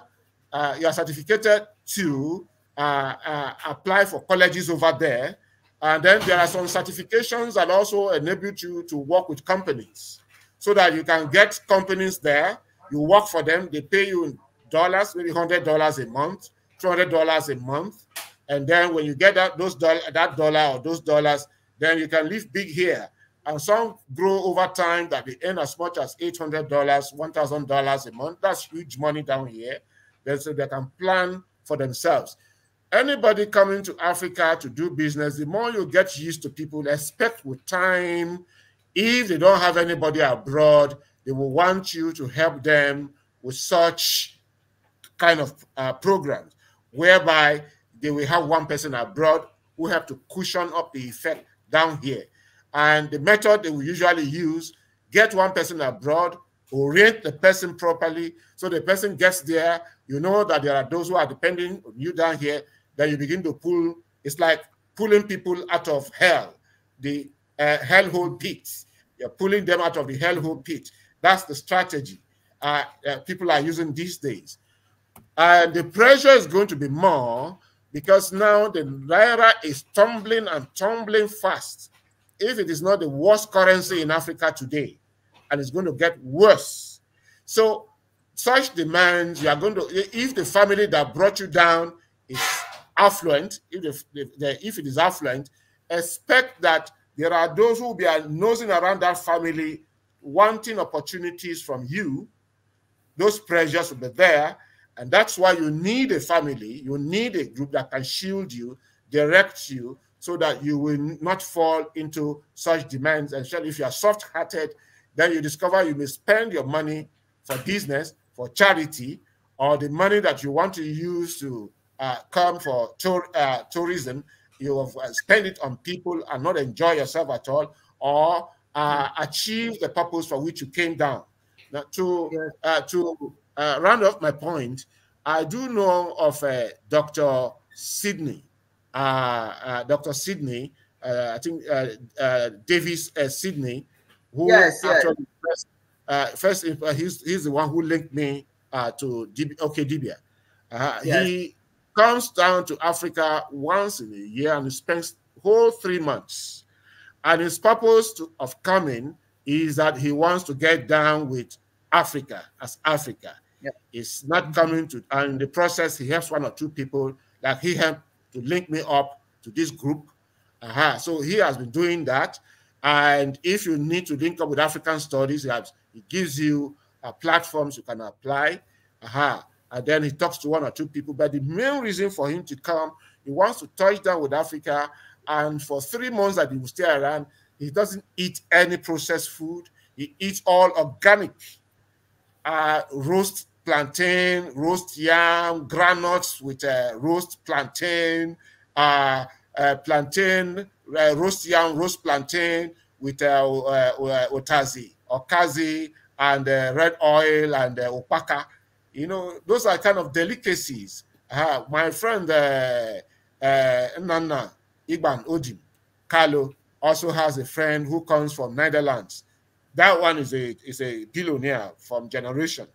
uh you are certificated to uh, uh, apply for colleges over there. And then there are some certifications that also enable you to work with companies so that you can get companies there. You work for them, they pay you dollars, maybe $100 a month, $200 a month. And then when you get that, those that dollar or those dollars, then you can live big here. And some grow over time that they earn as much as $800, $1,000 a month. That's huge money down here. so they can plan for themselves anybody coming to Africa to do business, the more you get used to people, expect with time, if they don't have anybody abroad, they will want you to help them with such kind of uh, programs, whereby they will have one person abroad who have to cushion up the effect down here. And the method they will usually use, get one person abroad, orient the person properly so the person gets there you know that there are those who are depending on you down here then you begin to pull. It's like pulling people out of hell, the uh, hellhole pits. You're pulling them out of the hellhole pit. That's the strategy uh, uh, people are using these days. And the pressure is going to be more because now the naira is tumbling and tumbling fast. If it is not the worst currency in Africa today, and it's going to get worse. So such demands, you are going to, if the family that brought you down is affluent, if, they, if, if it is affluent, expect that there are those who will be nosing around that family wanting opportunities from you. Those pressures will be there. And that's why you need a family, you need a group that can shield you, direct you, so that you will not fall into such demands. And if you are soft hearted, then you discover you may spend your money for business, for charity, or the money that you want to use to uh, come for tour, uh, tourism, you have uh, spent it on people and not enjoy yourself at all, or uh, mm. achieve the purpose for which you came down. Now, to uh, to uh, round off my point, I do know of Dr. Sydney, Dr. Sydney, I think Davis Sydney, who yes, actually yes. First, uh, first, uh, he's, he's the one who linked me uh, to DB, OK Dibia. Uh-huh. Yes. He comes down to Africa once in a year and spends whole three months. And his purpose to, of coming is that he wants to get down with Africa as Africa. is not coming to, and in the process, he helps one or two people, like he helped to link me up to this group. Uh -huh. So he has been doing that. And if you need to link up with African studies, it gives you uh, platforms you can apply. Uh -huh and then he talks to one or two people. But the main reason for him to come, he wants to touch down with Africa, and for three months that he will stay around, he doesn't eat any processed food. He eats all organic, uh, roast plantain, roast yam, granuts with uh, roast plantain, uh, uh, plantain, uh, roast yam, roast plantain with uh, uh, otazi, okazi, and red oil and opaka you know, those are kind of delicacies. Uh, my friend uh, uh, Nana Igban Ojim Carlo also has a friend who comes from Netherlands. That one is a is a billionaire from generation.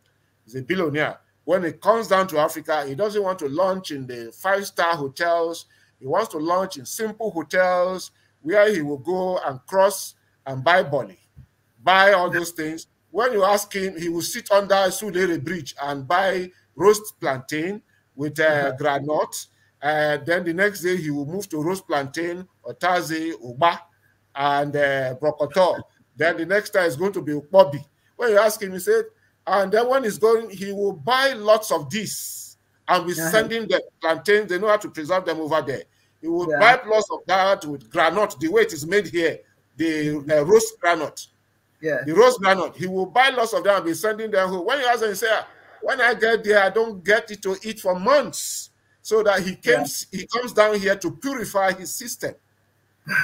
He's a billionaire. When it comes down to Africa, he doesn't want to launch in the five star hotels. He wants to launch in simple hotels where he will go and cross and buy Bonnie, buy all those things when you ask him, he will sit under Sulere Bridge and buy roast plantain with uh, mm-hmm. granite. Uh, then the next day, he will move to roast plantain, otaze, uba, and uh, brokoto. then the next time is going to be ukbobi. When you ask him, he said, and then when he's going, he will buy lots of this and we're uh-huh. sending the plantains. They know how to preserve them over there. He will yeah. buy lots of that with granite, the way it is made here, the uh, roast granite. Yeah. The rose granite. He will buy lots of them and be sending them home. When you ask him, say, ah, when I get there, I don't get it to eat for months. So that he comes, yeah. he comes down here to purify his system.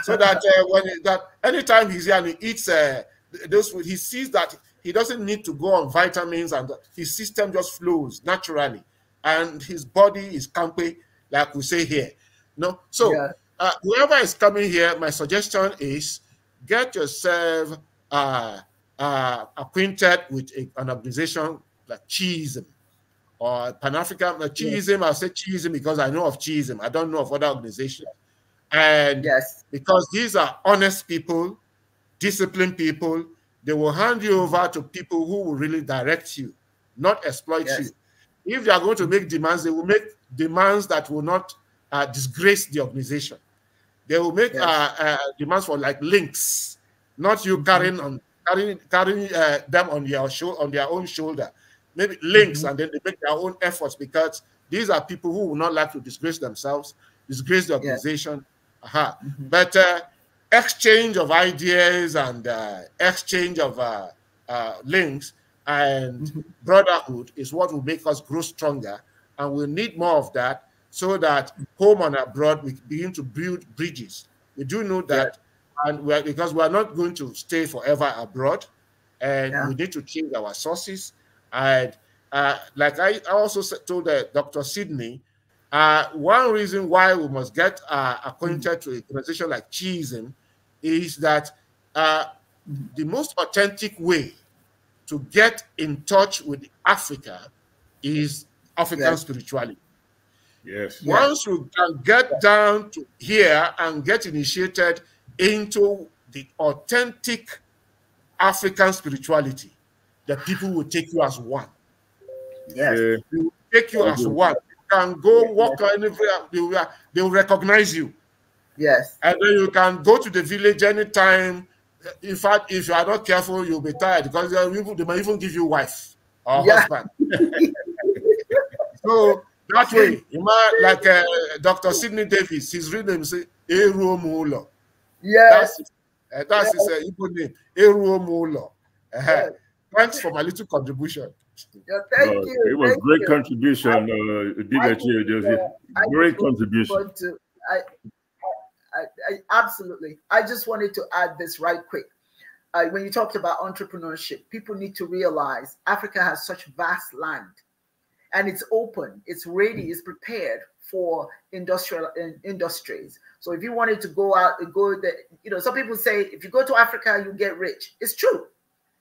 So that uh, when he, that anytime he's here and he eats uh, those food, he sees that he doesn't need to go on vitamins and his system just flows naturally. And his body is campy, like we say here. No, so yeah. uh, whoever is coming here, my suggestion is get yourself uh, uh, acquainted with a, an organization like Chiism or Pan African like Chiism. I say Chiism because I know of Chiism. I don't know of other organizations. And yes, because these are honest people, disciplined people, they will hand you over to people who will really direct you, not exploit yes. you. If they are going to make demands, they will make demands that will not uh, disgrace the organization. They will make yes. uh, uh, demands for like links not you mm-hmm. carrying on carrying carrying uh, them on your show on their own shoulder. Maybe links, mm -hmm. and then they make their own efforts because these are people who would not like to disgrace themselves, disgrace the organization. Yeah. Uh -huh. mm -hmm. But uh, exchange of ideas and uh, exchange of uh, uh, links and mm -hmm. brotherhood is what will make us grow stronger, and we will need more of that so that mm-hmm. home and abroad we begin to build bridges. We do know that. Yeah and we're, because we're not going to stay forever abroad, and yeah. we need to change our sources. And uh, like I, also told uh, Dr. Sydney, uh, one reason why we must get uh, acquainted to a organization like Chisholm is that uh, the most authentic way to get in touch with Africa is African yes. spirituality. Yes. Once yes. you can get down to here and get initiated into the authentic African spirituality, that people will take you as one. Yes. Yeah. They will take you as mm-hmm. one. You can go walk yes. anywhere, they will, they will recognize you. Yes. And then you can go to the village anytime. In fact, if you are not careful, you'll be tired because they might even give you wife or yeah. husband. so that way, you might, like uh, Dr. Sidney Davis, his real name is Eruomulo. Yes. That's, eh, that's yes. his uh, name, Eru Yes. Thanks for my little contribution. Yeah, thank uh, you. It was thank great you. contribution, uh, great contribution. To, I, I, I, absolutely. I just wanted to add this right quick. Uh, when you talked about entrepreneurship, people need to realize Africa has such vast land, and it's open, it's ready, it's prepared for industrial industries. So if you wanted to go out and go that you know, some people say if you go to Africa, you get rich. It's true.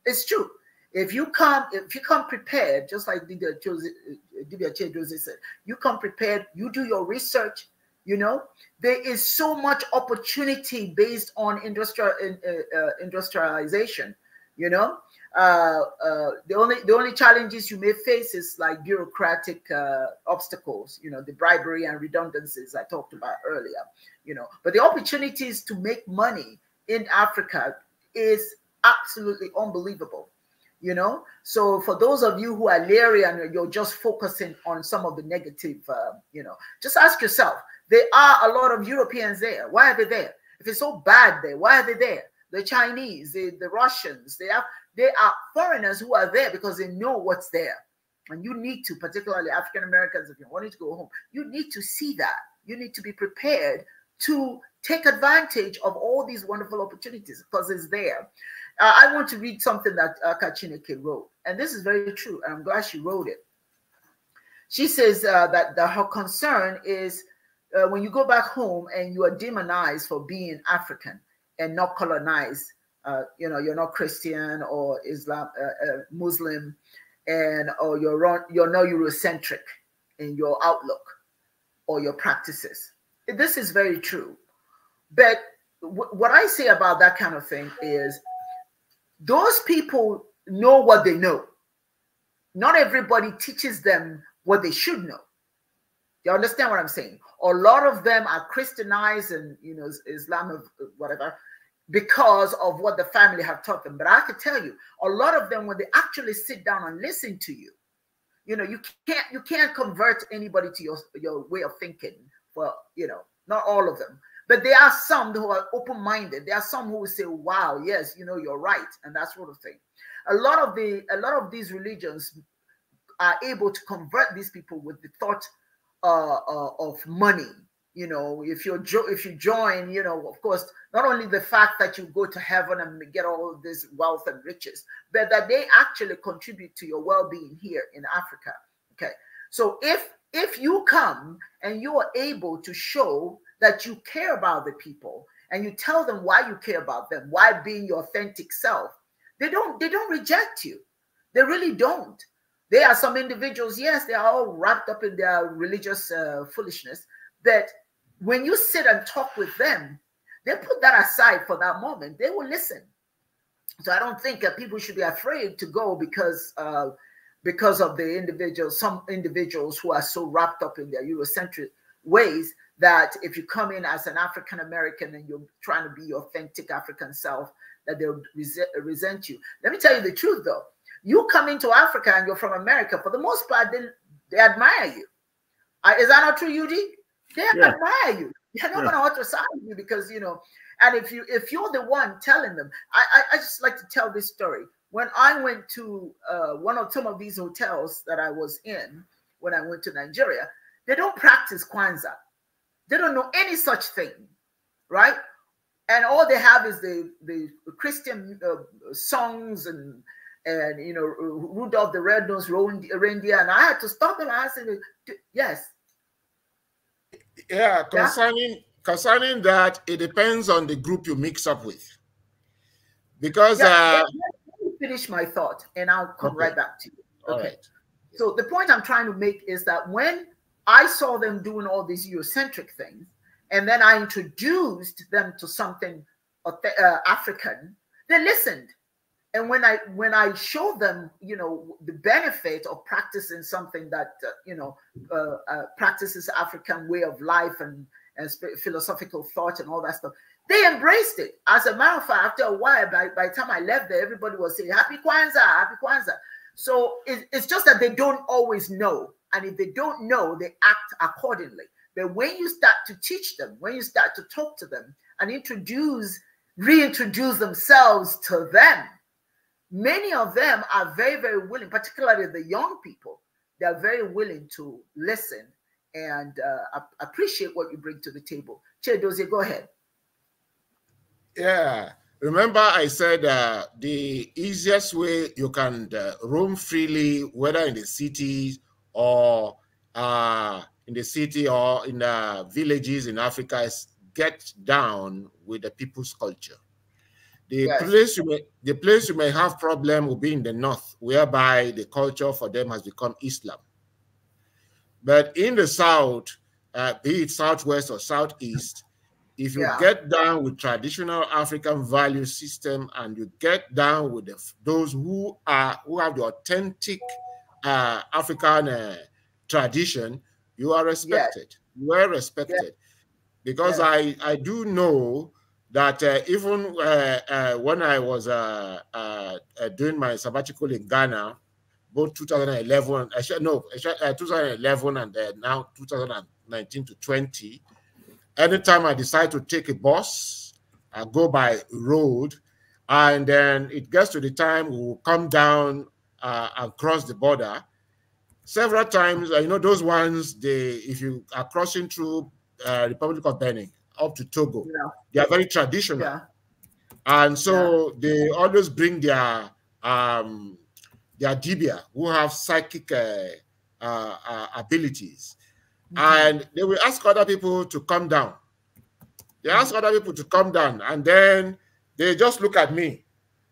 It's true. If you come, if you come prepared, just like Divya uh, Jose said, you come prepared, you do your research, you know, there is so much opportunity based on industrial uh, uh, industrialization, you know, uh, uh, the only the only challenges you may face is like bureaucratic uh, obstacles, you know, the bribery and redundancies I talked about earlier, you know. But the opportunities to make money in Africa is absolutely unbelievable, you know. So for those of you who are leery and you're just focusing on some of the negative, uh, you know, just ask yourself: there are a lot of Europeans there. Why are they there? If it's so bad there, why are they there? The Chinese, the, the Russians, they have they are foreigners who are there because they know what's there. And you need to, particularly African Americans, if you're wanting to go home, you need to see that. You need to be prepared to take advantage of all these wonderful opportunities because it's there. Uh, I want to read something that uh, Kachineke wrote, and this is very true, and I'm glad she wrote it. She says uh, that the, her concern is uh, when you go back home and you are demonized for being African and not colonized, uh, you know, you're not Christian or Islam, uh, uh Muslim, and or you're you're not Eurocentric in your outlook or your practices. This is very true, but what I say about that kind of thing is those people know what they know. Not everybody teaches them what they should know. You understand what I'm saying? A lot of them are Christianized and you know Islam of whatever, because of what the family have taught them. But I can tell you, a lot of them, when they actually sit down and listen to you, you know, you can't you can't convert anybody to your your way of thinking. Well, you know, not all of them, but there are some who are open-minded. There are some who will say, "Wow, yes, you know, you're right," and that sort of thing. A lot of the a lot of these religions are able to convert these people with the thought uh, uh, of money you know if you jo- if you join you know of course not only the fact that you go to heaven and get all this wealth and riches but that they actually contribute to your well-being here in africa okay so if if you come and you are able to show that you care about the people and you tell them why you care about them why being your authentic self they don't they don't reject you they really don't there are some individuals yes they are all wrapped up in their religious uh, foolishness that when you sit and talk with them, they put that aside for that moment. They will listen. So I don't think that people should be afraid to go because uh, because of the individuals, some individuals who are so wrapped up in their Eurocentric ways that if you come in as an African American and you're trying to be your authentic African self, that they'll resent you. Let me tell you the truth though. You come into Africa and you're from America, for the most part, they, they admire you. Uh, is that not true, Yudi? They are yeah. you. They're not yeah. gonna ultrasound you because you know. And if you if you're the one telling them, I I, I just like to tell this story. When I went to uh, one of some of these hotels that I was in when I went to Nigeria, they don't practice Kwanzaa. They don't know any such thing, right? And all they have is the the Christian uh, songs and and you know Rudolph the Red-Nosed Reindeer. And I had to stop them. ask said, "Yes, yeah, concerning yeah. concerning that, it depends on the group you mix up with. Because yeah, uh, let me finish my thought, and I'll come okay. right back to you. Okay. So the point I'm trying to make is that when I saw them doing all these Eurocentric things, and then I introduced them to something uh, African, they listened and when i when i show them you know the benefit of practicing something that uh, you know uh, uh, practices african way of life and and philosophical thought and all that stuff they embraced it as a matter of fact after a while by, by the time i left there everybody was saying happy kwanzaa happy kwanzaa so it, it's just that they don't always know and if they don't know they act accordingly but when you start to teach them when you start to talk to them and introduce reintroduce themselves to them Many of them are very, very willing, particularly the young people, they're very willing to listen and uh, appreciate what you bring to the table. Chedoze, go ahead. Yeah. Remember, I said uh, the easiest way you can uh, roam freely, whether in the city or uh, in the city or in the uh, villages in Africa, is get down with the people's culture. The yes. place you may the place you may have problem will be in the north, whereby the culture for them has become Islam. But in the south, uh, be it southwest or southeast, if you yeah. get down with traditional African value system and you get down with the, those who are who have the authentic uh, African uh, tradition, you are respected. Yes. You are respected, yes. because yes. I I do know that uh, even uh, uh when I was uh, uh, doing my sabbatical in Ghana, both 2011, actually, no, actually, 2011 and now 2019 to 20, anytime I decide to take a bus, I go by road, and then it gets to the time we will come down and cross the border several times. You know, those ones, they if you are crossing through uh, Republic of Benin, up to Togo. Yeah. They are very traditional. Yeah. And so they always bring their um, their dibia who have psychic uh, uh, uh abilities. Mm -hmm. And they will ask other people to come down. They ask mm-hmm. other people to come down, and then they just look at me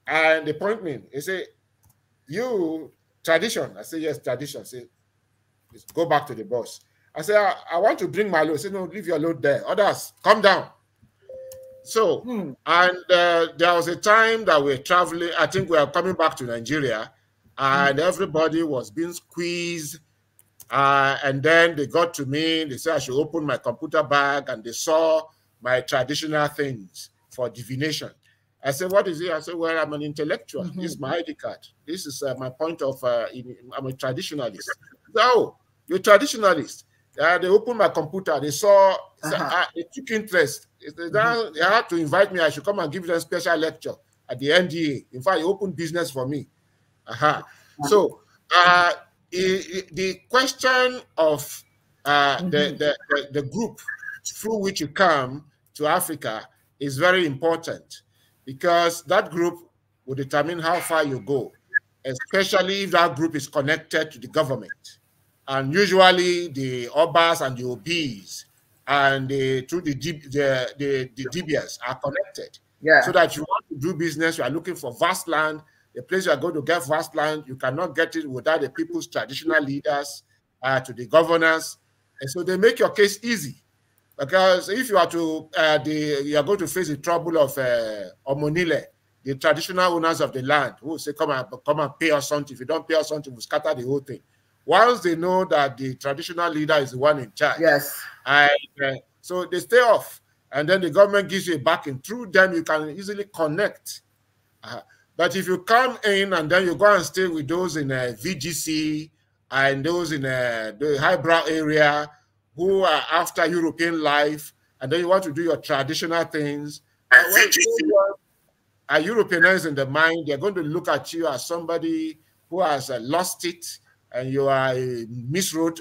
and they point me. They say, You tradition. I say, Yes, tradition. I say, go back to the boss. I said, I, ah, I, want to bring my load. He said, no, leave your load there. Others, come down. So, hmm. and uh, there was a time that we are traveling. I think we are coming back to Nigeria, and hmm. everybody was being squeezed. Uh, and then they got to me. They said I should open my computer bag, and they saw my traditional things for divination. I said, "What is it?" I said, "Well, I'm an intellectual. Mm -hmm. This is mm-hmm. my ID card. This is uh, my point of. Uh, in, I'm a traditionalist." No, oh, you're traditionalist. Uh, they opened my computer. They saw, uh -huh. Ah, they took interest. They, mm -hmm. they had to invite me. I should come and give them a special lecture at the NDA. In fact, it opened business for me. Uh -huh. Uh-huh. So uh, the question of uh, mm-hmm. the, the, the, group through which you come to Africa is very important because that group will determine how far you go, especially if that group is connected to the government and usually the obas and the obis and the through the the the, the DBS are connected. Yeah. So that you want to do business, you are looking for vast land. The place you are going to get vast land, you cannot get it without the people's traditional leaders uh, to the governors, and so they make your case easy. Because if you are to uh, the you are going to face the trouble of uh, Omonile, the traditional owners of the land, who say come and come and pay us something. If you don't pay us something, we we'll scatter the whole thing. Once they know that the traditional leader is the one in charge, yes, and, uh, so they stay off, and then the government gives you a backing. Through them, you can easily connect. Uh, but if you come in and then you go and stay with those in a uh, VGC and those in a, uh, the highbrow area who are after European life, and then you want to do your traditional things, and uh, when are Europeanized in the mind, they're going to look at you as somebody who has uh, lost it and you are a misroad.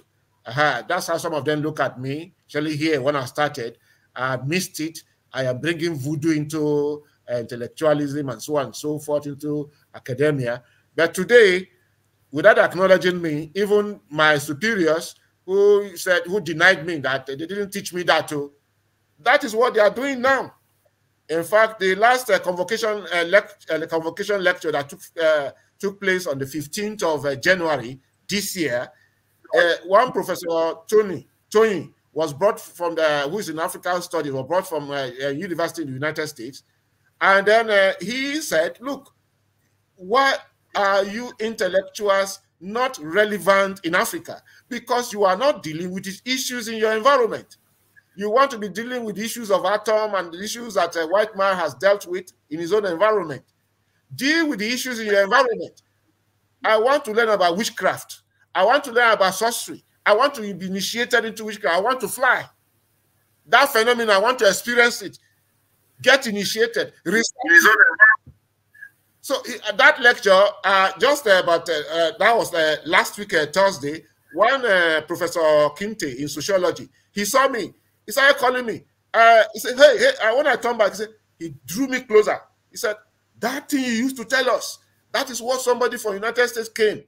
that's how some of them look at me, Actually, here when I started. I missed it. I am bringing voodoo into uh, intellectualism and so on and so forth into academia. But today, without acknowledging me, even my superiors who said, who denied me that they didn't teach me that too, oh, that is what they are doing now. In fact, the last uh, convocation, uh, lect uh, convocation lecture that took, uh, took place on the 15th of uh, January this year. Uh, one professor, Tony, Tony, was brought from the, who is in African studies, was brought from a, uh, uh, university in the United States. And then uh, he said, look, why are you intellectuals not relevant in Africa? Because you are not dealing with these issues in your environment. You want to be dealing with issues of atom and the issues that a white man has dealt with in his own environment. Deal with the issues in your environment. I want to learn about witchcraft. I want to learn about sorcery. I want to be initiated into witchcraft. I want to fly. That phenomenon, I want to experience it. Get initiated. So uh, that lecture, uh, just uh, about uh, uh, that was last week, Thursday, One Professor Kinte in sociology, he saw me. He started calling me. he said, hey, hey, when I come back, he, said, he drew me closer. He said, that thing you used to tell us, that is what somebody from United States came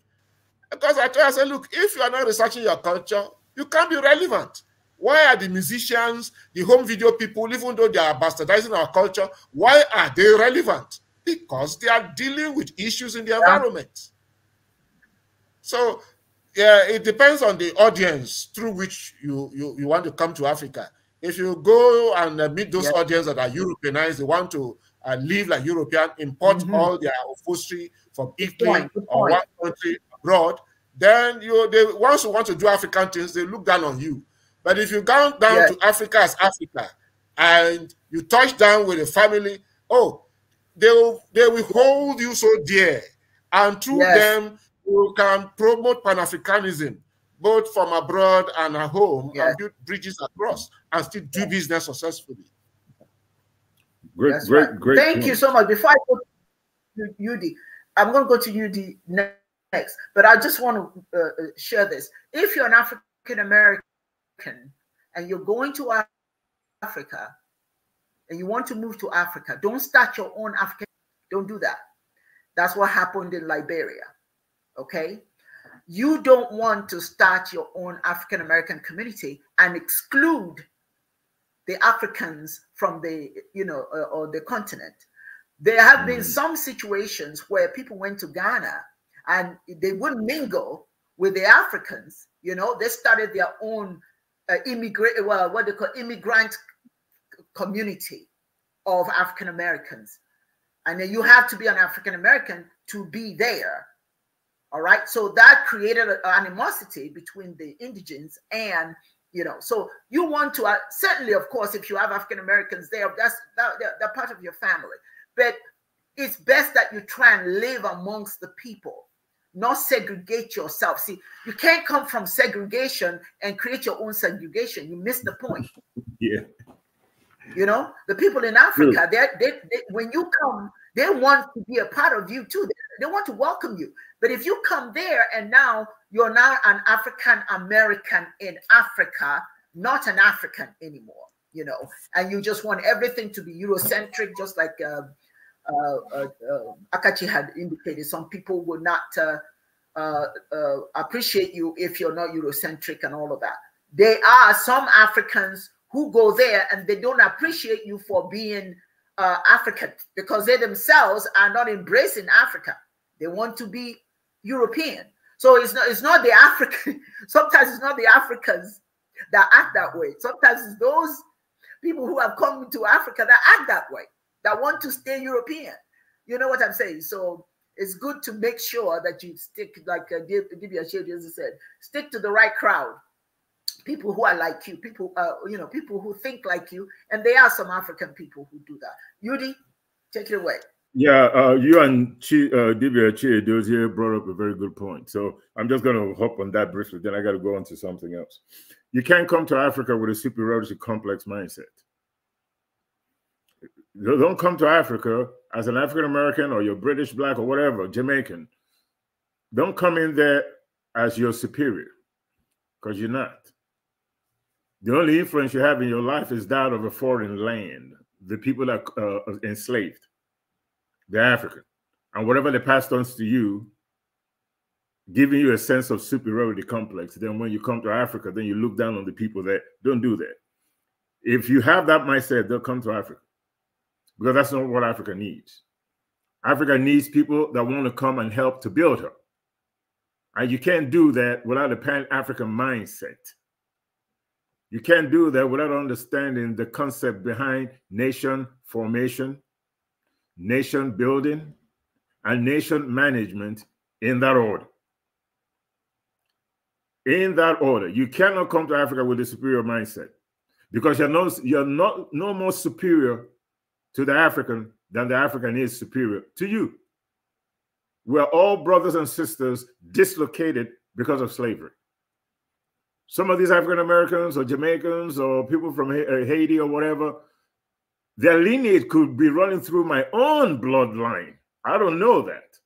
because I told her, I said, look, if you are not researching your culture, you can't be relevant. Why are the musicians, the home video people, even though they are bastardizing our culture, why are they relevant? Because they are dealing with issues in the environment. So yeah, it depends on the audience through which you, you, you want to come to Africa. If you go and uh, meet those yeah. audience that are Europeanized, they want to uh, live like European, import mm -hmm. all their upholstery from Italy or one country abroad, then you they once you want to do African things, they look down on you. But if you go down yes. to Africa as Africa and you touch down with a family, oh, they will they will hold you so dear. And through yes. them, you can promote Pan-Africanism both from abroad and at home yes. and build bridges across and still do business successfully. Great, That's great, right. great. Thank you so much. Before I go to UD, I'm going to go to UD next, but I just want to uh, uh, share this. If you're an African American and you're going to Africa and you want to move to Africa, don't start your own African. Don't do that. That's what happened in Liberia. Okay. You don't want to start your own African American community and exclude the Africans from the, you know, uh, or the continent. There have mm. been some situations where people went to Ghana and they wouldn't mingle with the Africans. You know, they started their own uh, immigrant, well, what they call immigrant community of African Americans. And then you have to be an African American to be there. All right. So that created an animosity between the indigents and you know. So you want to uh, certainly, of course, if you have African Americans there, that's that, they're, they're part of your family. But it's best that you try and live amongst the people not segregate yourself. See, you can't come from segregation and create your own segregation. You miss the point. yeah. You know, the people in Africa, really? they, they, when you come, they want to be a part of you too. They, they want to welcome you. But if you come there and now you're now an African American in Africa, not an African anymore, you know, and you just want everything to be Eurocentric, just like uh, uh, uh, uh, Akachi had indicated, some people will not uh, appreciate you if you're not Eurocentric and all of that. There are some Africans who go there and they don't appreciate you for being African because they themselves are not embracing Africa. They want to be European. So it's not it's not the African. Sometimes it's not the Africans that act that way. Sometimes it's those people who have come to Africa that act that way that want to stay European. You know what I'm saying? So it's good to make sure that you stick, like uh, give, give your as I said, stick to the right crowd. People who are like you, people, uh, you know, people who think like you, and there are some African people who do that. Yudi, take it away. Yeah, uh, you and Ch uh, Divya Chiedozie brought up a very good point. So I'm just going to hop on that briefly. Then I got to go on to something else. You can't come to Africa with a superiority complex mindset. Don't come to Africa as an African American or you're British, black, or whatever, Jamaican. Don't come in there as your superior because you're not. The only influence you have in your life is that of a foreign land, the people that uh, uh, enslaved, the African. And whatever they passed on to you, giving you a sense of superiority complex. Then when you come to Africa, then you look down on the people that don't do that. If you have that mindset, they'll come to Africa because that's not what Africa needs. Africa needs people that want to come and help to build her. And you can't do that without a pan African mindset. You can't do that without understanding the concept behind nation formation, nation building, and nation management in that order. In that order, you cannot come to Africa with a superior mindset because you're, no, you're not, no more superior to the African than the African is superior to you. We're all brothers and sisters dislocated because of slavery. Some of these African Americans or Jamaicans or people from uh, Haiti or whatever, their lineage could be running through my own bloodline. I don't know that.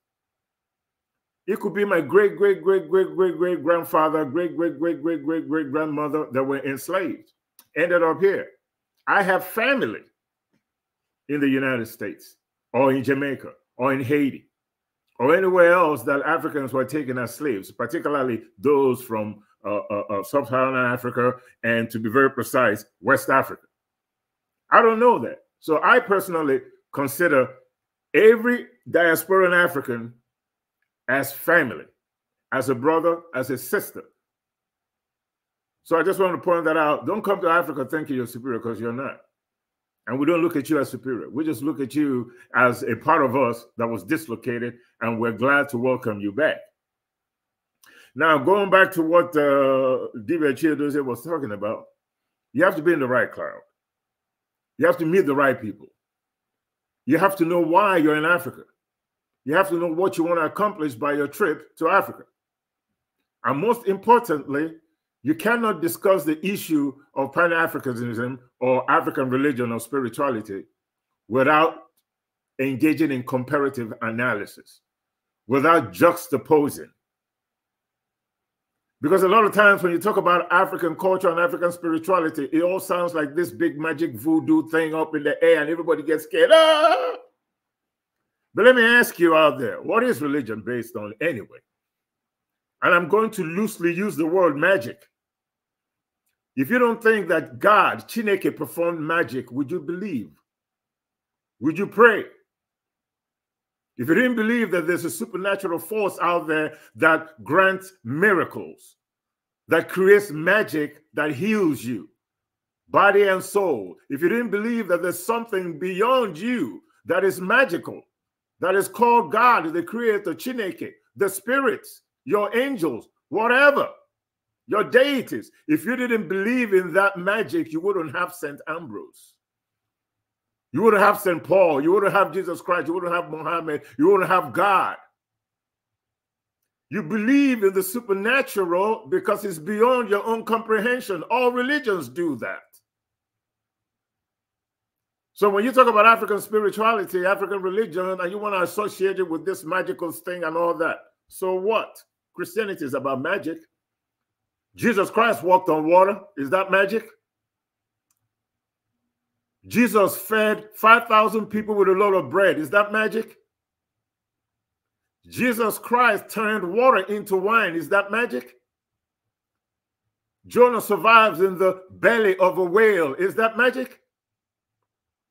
It could be my great, great, great, great, great, great grandfather, great, great, great, great, great, great grandmother that were enslaved, ended up here. I have family in the United States or in Jamaica or in Haiti or anywhere else that Africans were taken as slaves, particularly those from uh, uh, uh Sub Saharan Africa and, to be very precise, West Africa. I don't know that. So I personally consider every diasporan African as family, as a brother, as a sister. So I just want to point that out. Don't come to Africa thinking you're superior because you're not. And we don't look at you as superior. We just look at you as a part of us that was dislocated, and we're glad to welcome you back. Now, going back to what uh, Divya Chiedoze was talking about, you have to be in the right crowd. You have to meet the right people. You have to know why you're in Africa. You have to know what you want to accomplish by your trip to Africa. And most importantly, you cannot discuss the issue of pan Africanism or African religion or spirituality without engaging in comparative analysis, without juxtaposing. Because a lot of times when you talk about African culture and African spirituality, it all sounds like this big magic voodoo thing up in the air and everybody gets scared. Ah! But let me ask you out there what is religion based on anyway? And I'm going to loosely use the word magic if you don't think that God, Chineke, performed magic, would you believe? Would you pray? If you didn't believe that there's a supernatural force out there that grants miracles, that creates magic that heals you, body and soul, if you didn't believe that there's something beyond you that is magical, that is called God, the creator, Chineke, the spirits, your angels, whatever your deities. If you didn't believe in that magic, you wouldn't have St. Ambrose. You wouldn't have St. Paul. You wouldn't have Jesus Christ. You wouldn't have Muhammad. You wouldn't have God. You believe in the supernatural because it's beyond your own comprehension. All religions do that. So when you talk about African spirituality, African religion, and you want to associate it with this magical thing and all that, so what? Christianity is about magic. Jesus Christ walked on water. Is that magic? Jesus fed 5,000 people with a load of bread. Is that magic? Jesus Christ turned water into wine. Is that magic? Jonah survives in the belly of a whale. Is that magic?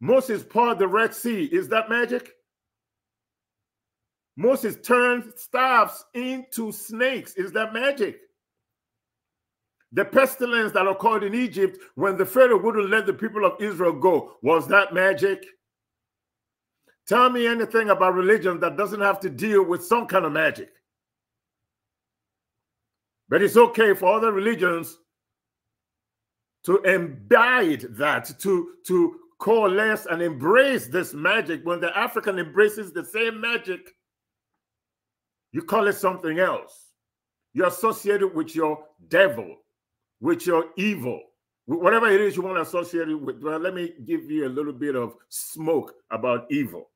Moses parted the Red Sea. Is that magic? Moses turned staffs into snakes. Is that magic? The pestilence that occurred in Egypt when the Pharaoh wouldn't let the people of Israel go, was that magic? Tell me anything about religion that doesn't have to deal with some kind of magic. But it's okay for other religions to imbibe that, to, to coalesce and embrace this magic. When the African embraces the same magic, you call it something else. You associate it with your devil with your evil, whatever it is you want to associate it with. Well, let me give you a little bit of smoke about evil.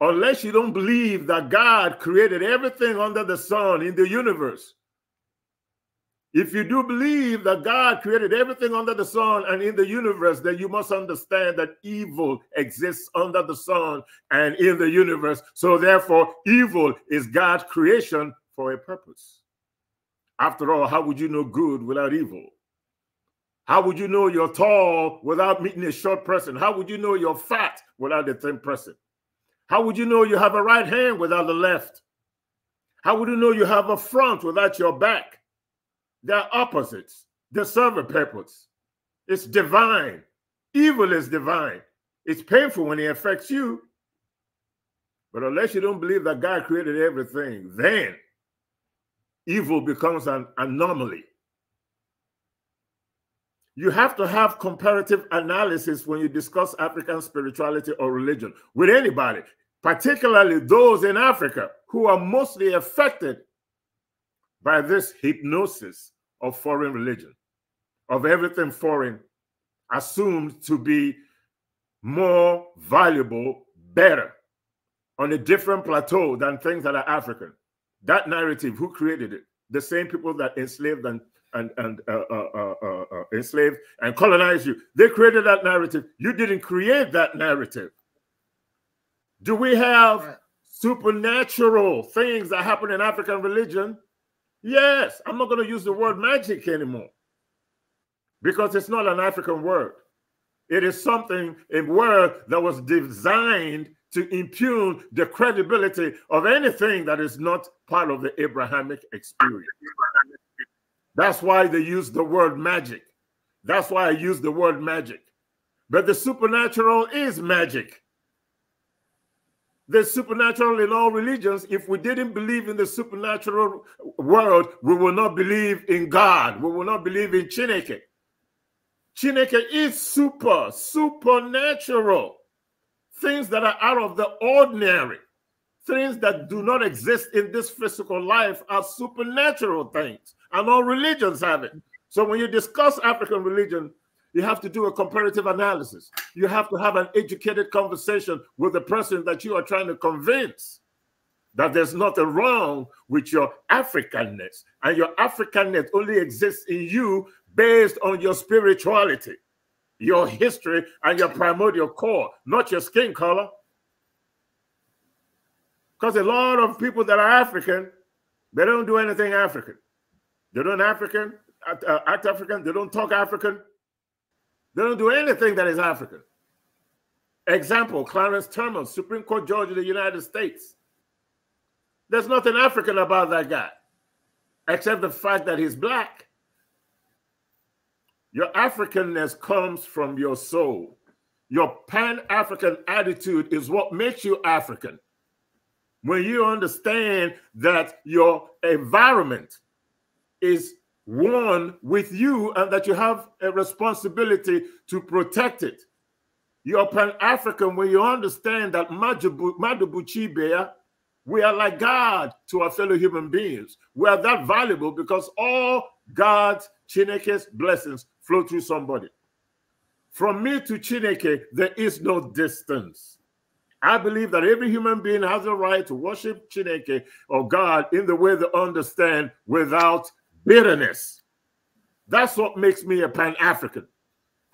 Unless you don't believe that God created everything under the sun in the universe, if you do believe that God created everything under the sun and in the universe, then you must understand that evil exists under the sun and in the universe. So, therefore, evil is God's creation for a purpose. After all, how would you know good without evil? How would you know you're tall without meeting a short person? How would you know you're fat without a thin person? How would you know you have a right hand without the left? How would you know you have a front without your back? They're opposites. They serve a purpose. It's divine. Evil is divine. It's painful when it affects you. But unless you don't believe that God created everything, then evil becomes an anomaly. You have to have comparative analysis when you discuss African spirituality or religion with anybody, particularly those in Africa who are mostly affected by this hypnosis of foreign religion, of everything foreign assumed to be more valuable, better, on a different plateau than things that are African. That narrative, who created it? The same people that enslaved and and and uh uh, uh, uh, uh, enslaved and colonized you. They created that narrative. You didn't create that narrative. Do we have supernatural things that happen in African religion? Yes. I'm not going to use the word magic anymore because it's not an African word. It is something a word that was designed to impugn the credibility of anything that is not part of the Abrahamic experience. That's why they use the word magic. That's why I use the word magic. But the supernatural is magic. The supernatural in all religions, if we didn't believe in the supernatural world, we will not believe in God. We will not believe in Chineke. Chineke is super, supernatural things that are out of the ordinary, things that do not exist in this physical life are supernatural things, and all religions have it. So when you discuss African religion, you have to do a comparative analysis. You have to have an educated conversation with the person that you are trying to convince that there's nothing wrong with your Africanness. And your Africanness only exists in you based on your spirituality your history and your primordial core, not your skin color. Because a lot of people that are African, they don't do anything African. They don't African, act, uh, African, they don't talk African. They don't do anything that is African. Example, Clarence Thurman, Supreme Court Judge of the United States. There's nothing African about that guy, except the fact that he's black. Your Africanness comes from your soul. Your pan African attitude is what makes you African. When you understand that your environment is one with you and that you have a responsibility to protect it. You're Pan African when you understand that Madubuchibea, we are like God to our fellow human beings. We are that valuable because all God's Chineke's blessings flow through somebody. From me to Chineke, there is no distance. I believe that every human being has a right to worship Chineke or God in the way they understand without bitterness. That's what makes me a Pan African.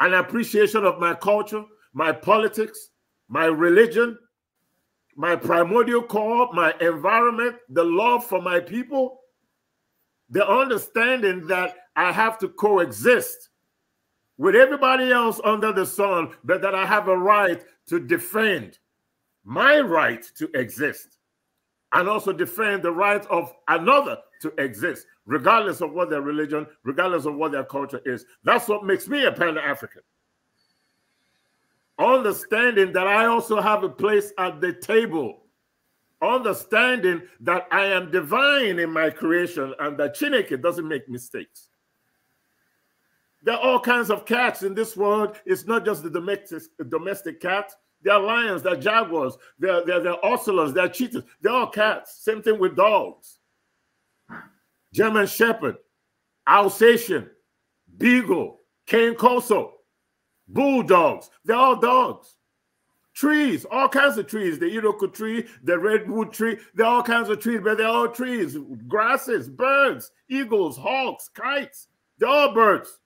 An appreciation of my culture, my politics, my religion, my primordial core, my environment, the love for my people, the understanding that I have to coexist with everybody else under the sun, but that I have a right to defend my right to exist and also defend the right of another to exist, regardless of what their religion, regardless of what their culture is. That's what makes me a pan African. Understanding that I also have a place at the table. Understanding that I am divine in my creation and that Chineke doesn't make mistakes. There are all kinds of cats in this world. It's not just the domestic domestic cat. There are lions, there are jaguars, there, are ocelots, there are cheetahs. They're all cats. Same thing with dogs. German Shepherd, Alsatian, Beagle, Cane Corso, Bulldogs. They're all dogs. Trees, all kinds of trees. The eucalyptus tree, the redwood tree. They're all kinds of trees, but they're all trees. Grasses, birds, eagles, hawks, kites. They're all birds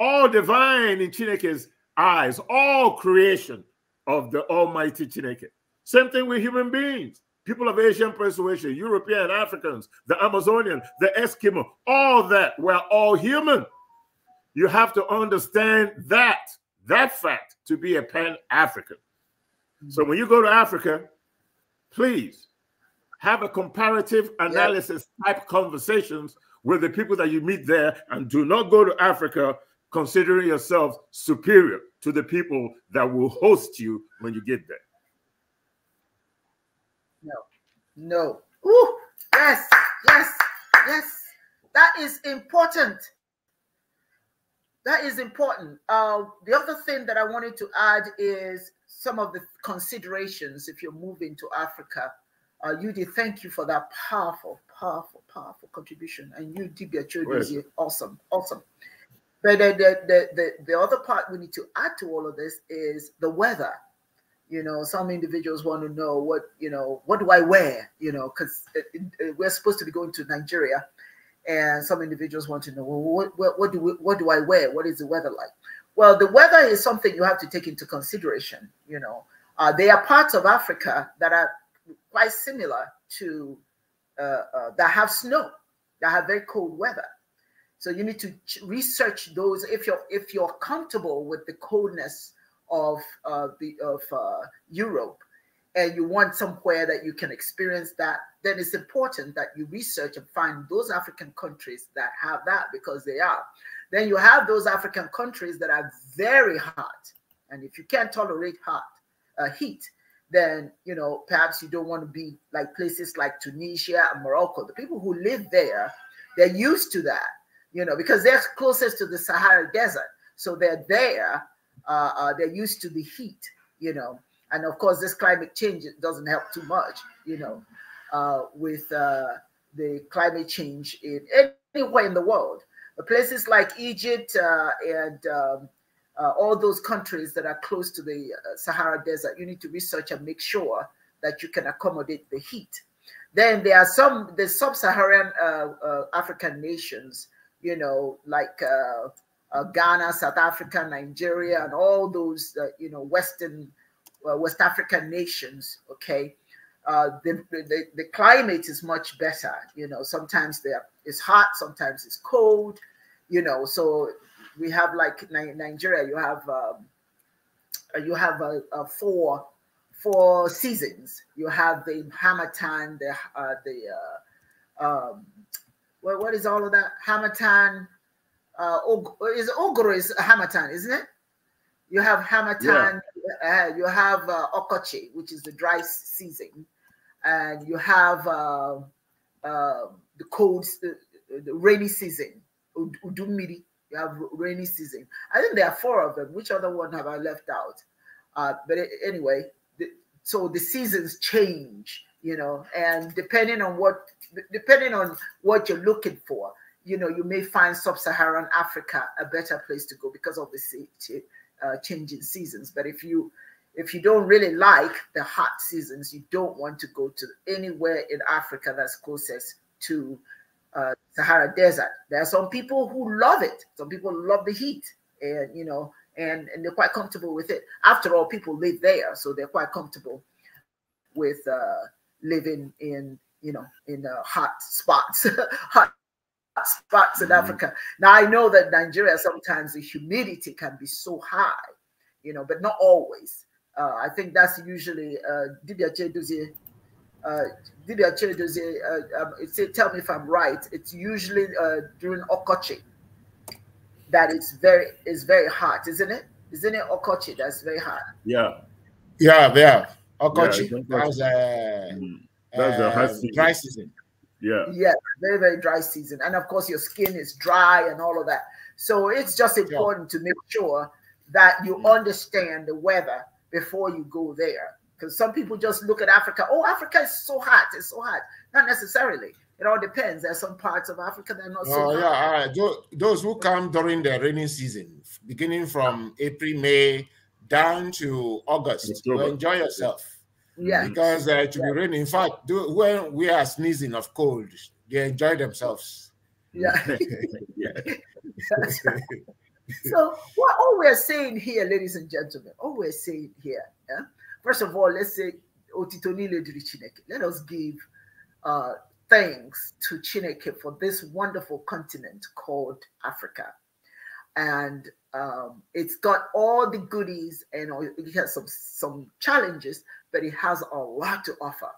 all divine in Chineke's eyes, all creation of the Almighty Chineke. Same thing with human beings, people of Asian persuasion, European, Africans, the Amazonian, the Eskimo, all that, we're all human. You have to understand that, that fact, to be a pan African. So when you go to Africa, please have a comparative analysis yep. type conversations with the people that you meet there and do not go to Africa considering yourself superior to the people that will host you when you get there. No, no. Ooh, yes, yes, yes. That is important. That is important. Uh, the other thing that I wanted to add is some of the considerations if you're moving to Africa. Uh, Yudi, thank you for that powerful, powerful, powerful contribution. And you, Dibia Chodisi, awesome, awesome. But the, the, the, the other part we need to add to all of this is the weather. You know, some individuals want to know what, you know, what do I wear? You know, because uh, uh, we're supposed to be going to Nigeria. And some individuals want to know, well, what, what, do we, what do I wear? What is the weather like? Well, the weather is something you have to take into consideration. You know, uh, there are parts of Africa that are quite similar to uh, uh, that have snow, that have very cold weather. So you need to research those if you're if you're comfortable with the coldness of uh, the of uh, Europe, and you want somewhere that you can experience that. Then it's important that you research and find those African countries that have that because they are. Then you have those African countries that are very hot, and if you can't tolerate hot uh, heat, then you know perhaps you don't want to be like places like Tunisia and Morocco. The people who live there, they're used to that you know, because they're closest to the Sahara Desert. So they're there. Uh, uh, they're used to the heat, you know. And of course, this climate change doesn't help too much, you know, uh, with uh, the climate change in anywhere in the world. But places like Egypt uh, and um, uh, all those countries that are close to the Sahara Desert, you need to research and make sure that you can accommodate the heat. Then there are some the sub-Saharan African nations you know, like uh, uh, Ghana, South Africa, Nigeria, and all those, uh, you know, Western, uh, West African nations, okay, uh, the, the, the, climate is much better. You know, sometimes it's hot, sometimes it's cold, you know, so we have like Nigeria, you have, um, uh, you have a, a four, four seasons. You have the hammer time, the, the, um, what is all of that? Hamatan. Uh, is Ogro is Hamatan, isn't it? You have Hamatan, yeah. uh, you have uh, Okoche, which is the dry season, and you have uh, um, the cold, the, the, rainy season, Udumiri. You have rainy season. I think there are four of them. Which other one have I left out? Uh, but anyway, the, so the seasons change, you know, and depending on what depending on what you're looking for, you know, you may find sub-Saharan Africa a better place to go because of the uh, changing seasons. But if you if you don't really like the hot seasons, you don't want to go to anywhere in Africa that's closest to uh, Sahara Desert. There are some people who love it. Some people love the heat, and you know, and and they're quite comfortable with it. After all, people live there, so they're quite comfortable with uh, living in you know, in uh, hot spots, hot spots mm -hmm. in mm-hmm. Africa. Now I know that Nigeria sometimes the humidity can be so high, you know, but not always. Uh, I think that's usually uh, Uh, uh, um, it's, tell me if I'm right. It's usually uh, during Okochi that it's very it's very hot, isn't it? Isn't it Okochi that's very hot? Yeah, yeah, yeah. Okochi. Yeah, that's a high um, season. dry season. Yeah. Yeah, very, very dry season. And of course, your skin is dry and all of that. So it's just important yeah. to make sure that you mm. understand the weather before you go there. Because some people just look at Africa, oh, Africa is so hot, it's so hot. Not necessarily. It all depends. There's some parts of Africa that are not oh, so yeah, hot. all right. Those, those who come during the rainy season, beginning from April, May down to August, enjoy yourself. Yeah. Because uh, it should yeah. be raining. In fact, do, when we are sneezing of cold, they enjoy themselves. Yeah. yeah. so what all we're saying here, ladies and gentlemen, all we're saying here, yeah? first of all, let's say let us give uh, thanks to Chineke for this wonderful continent called Africa. And um, it's got all the goodies and it has some, some challenges, but it has a lot to offer.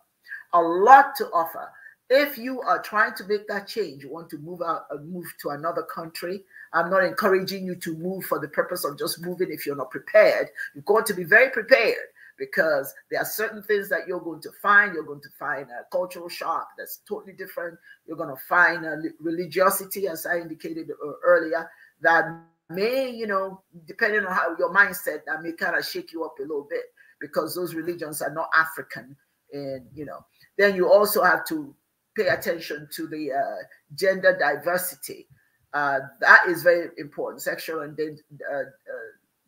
A lot to offer. If you are trying to make that change, you want to move out, and uh, move to another country. I'm not encouraging you to move for the purpose of just moving if you're not prepared. You've got to be very prepared because there are certain things that you're going to find. You're going to find a cultural shock that's totally different. You're going to find a religiosity, as I indicated uh, earlier, that may, you know, depending on how your mindset, that may kind of shake you up a little bit because those religions are not African. And, you know, then you also have to pay attention to the uh, gender diversity. Uh, that is very important, sexual and uh, uh,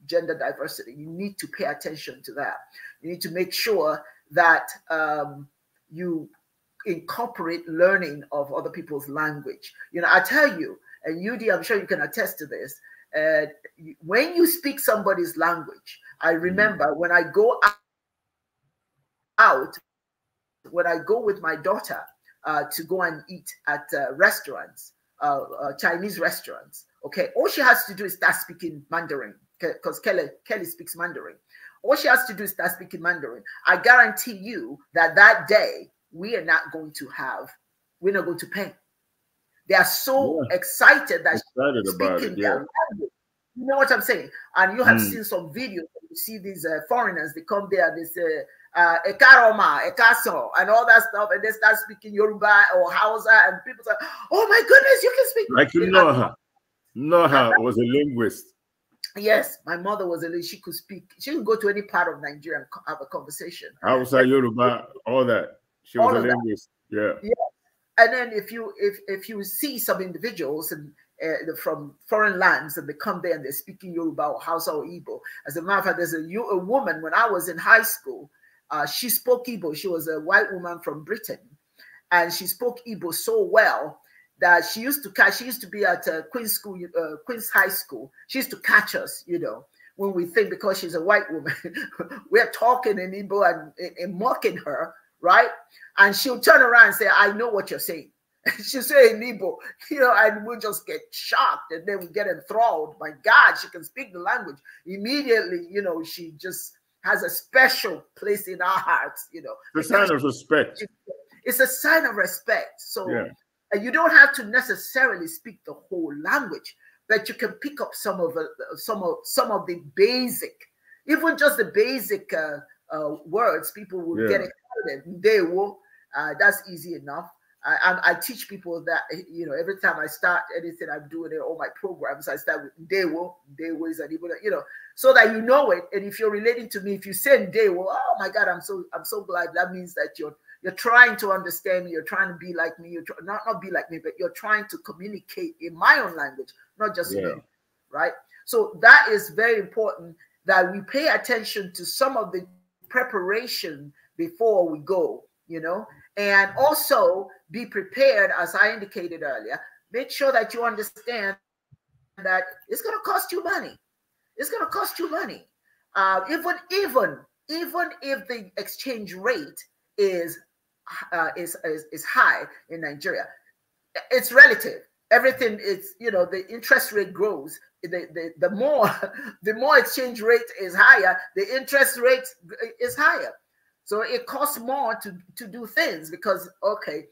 gender diversity. You need to pay attention to that. You need to make sure that um, you incorporate learning of other people's language. You know, I tell you, and UD, I'm sure you can attest to this, uh, when you speak somebody's language, I mm. remember when I go out, when I go with my daughter uh, to go and eat at uh, restaurants, uh, uh, Chinese restaurants, okay, all she has to do is start speaking Mandarin because Kelly, Kelly speaks Mandarin. All she has to do is start speaking Mandarin. I guarantee you that that day we are not going to have, we're not going to pay. They are so yeah. excited that excited about it, yeah. You know what I'm saying? And you have mm. seen some videos. You see these uh, foreigners, they come there, they say, uh, Ekaroma, Ekaso, and all that stuff, and they start speaking Yoruba or Hausa, and people say, "Oh my goodness, you can speak." Like you know her. Noha was a linguist. Yes, my mother was a she could speak. She could go to any part of Nigeria and have a conversation. Hausa, Yoruba, all that. She was all a linguist. That. Yeah. Yeah and then if you if if you see some individuals and uh, from foreign lands and they come there and they're speaking Yoruba or Hausa or Igbo. As a matter of fact, there's a, a woman when I was in high school, uh, she spoke Igbo. She was a white woman from Britain, and she spoke Igbo so well that she used to catch. She used to be at uh, Queen's School, uh, Queen's High School. She used to catch us, you know, when we think because she's a white woman, we're talking in Igbo and, and mocking her right? And she'll turn around and say, I know what you're saying. she'll say in Igbo, you know, and we'll just get shocked and then we get enthralled. My God, she can speak the language. Immediately, you know, she just has a special place in our hearts, you know. It's a sign of respect. It's a sign of respect. So yeah. you don't have to necessarily speak the whole language, but you can pick up some of the, some of some of the basic, even just the basic uh, uh, words. People will yeah. get it student, Ndewo, uh, that's easy enough. I, I, teach people that you know every time I start anything I'm doing it. all my programs, I start with day Ndewo is an Igbo, you know, so that you know it. And if you're relating to me, if you say work, oh my God, I'm so I'm so glad. That means that you're you're trying to understand me, you're trying to be like me, you're not not be like me, but you're trying to communicate in my own language, not just yeah. me, right? So that is very important that we pay attention to some of the preparation before we go, you know. And also be prepared, as I indicated earlier, make sure that you understand that it's going to cost you money. It's going to cost you money. Uh, even even even if the exchange rate is, uh, is is is high in Nigeria, it's relative. Everything is you know the interest rate grows. The, the, the more the more exchange rate is higher, the interest rate is higher. So it costs more to, to do things because, okay,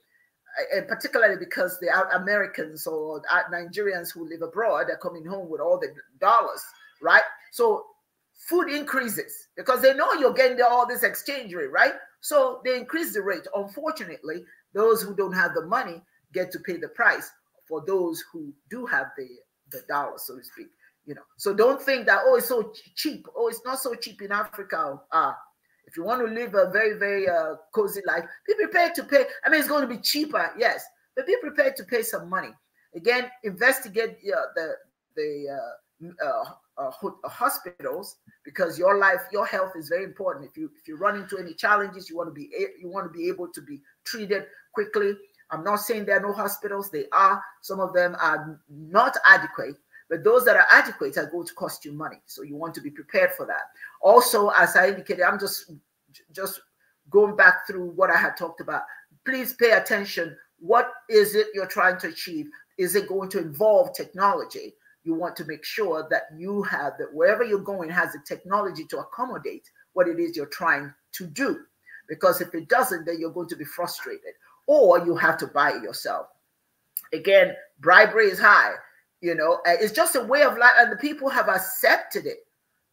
and particularly because the Americans or Nigerians who live abroad are coming home with all the dollars, right? So food increases because they know you're getting all this exchange rate, right? So they increase the rate. Unfortunately, those who don't have the money get to pay the price for those who do have the, the dollar, so to speak. You know, so don't think that oh it's so cheap. Oh, it's not so cheap in Africa. Ah, uh, if you want to live a very, very uh, cozy life, be prepared to pay. I mean, it's going to be cheaper, yes, but be prepared to pay some money. Again, investigate uh, the the uh, uh, uh, uh, hospitals because your life, your health is very important. If you if you run into any challenges, you want to be you want to be able to be treated quickly. I'm not saying there are no hospitals; they are. Some of them are not adequate, but those that are adequate are going to cost you money. So you want to be prepared for that. Also, as I indicated, I'm just just going back through what I had talked about. Please pay attention. What is it you're trying to achieve? Is it going to involve technology? You want to make sure that you have that wherever you're going has the technology to accommodate what it is you're trying to do. Because if it doesn't, then you're going to be frustrated or you have to buy it yourself. Again, bribery is high. You know, it's just a way of life, and the people have accepted it.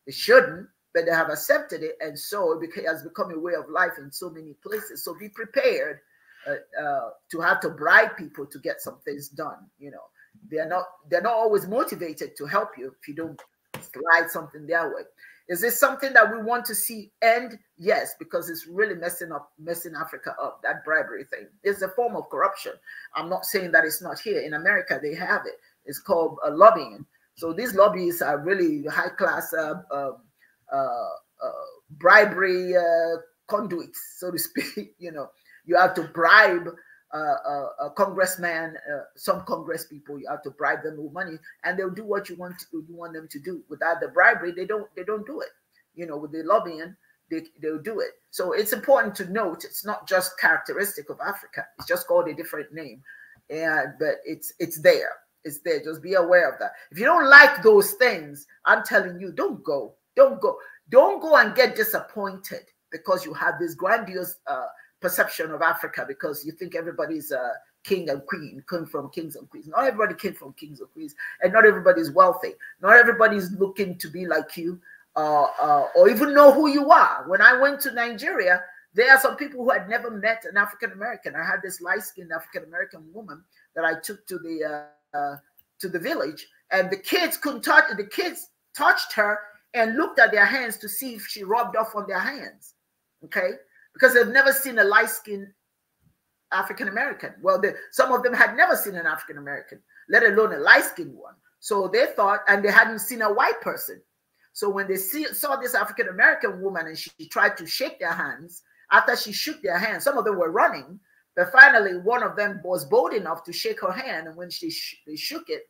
They shouldn't, but they have accepted it, and so it has become a way of life in so many places. So be prepared uh, uh, to have to bribe people to get some things done. You know, they're not they're not always motivated to help you if you don't slide something their way. Is this something that we want to see end? Yes, because it's really messing up, messing Africa up. That bribery thing is a form of corruption. I'm not saying that it's not here in America; they have it, it's called uh, lobbying. So these lobbies are really high class uh, um, uh, uh, bribery uh, conduits, so to speak. you know, you have to bribe a congressman, some congress people. You have to bribe them with money, and they'll do what you want to, you want them to do. Without the bribery, they don't they don't do it. You know, with the lobbying, they, they'll do it. So it's important to note it's not just characteristic of Africa. It's just called a different name, and but it's it's there. It's there. Just be aware of that. If you don't like those things, I'm telling you, don't go. Don't go. Don't go and get disappointed because you have this grandiose uh, perception of Africa because you think everybody's a king and queen, come from kings and queens. Not everybody came from kings and queens, and not everybody's wealthy. Not everybody's looking to be like you uh, uh, or even know who you are. When I went to Nigeria, there are some people who had never met an African American. I had this light skinned African American woman that I took to the uh, uh, to the village, and the kids couldn't touch. The kids touched her and looked at their hands to see if she rubbed off on their hands. Okay, because they've never seen a light-skinned African American. Well, they, some of them had never seen an African American, let alone a light-skinned one. So they thought, and they hadn't seen a white person. So when they see, saw this African American woman and she, she tried to shake their hands, after she shook their hands, some of them were running but finally, one of them was bold enough to shake her hand. And when she sh they shook it,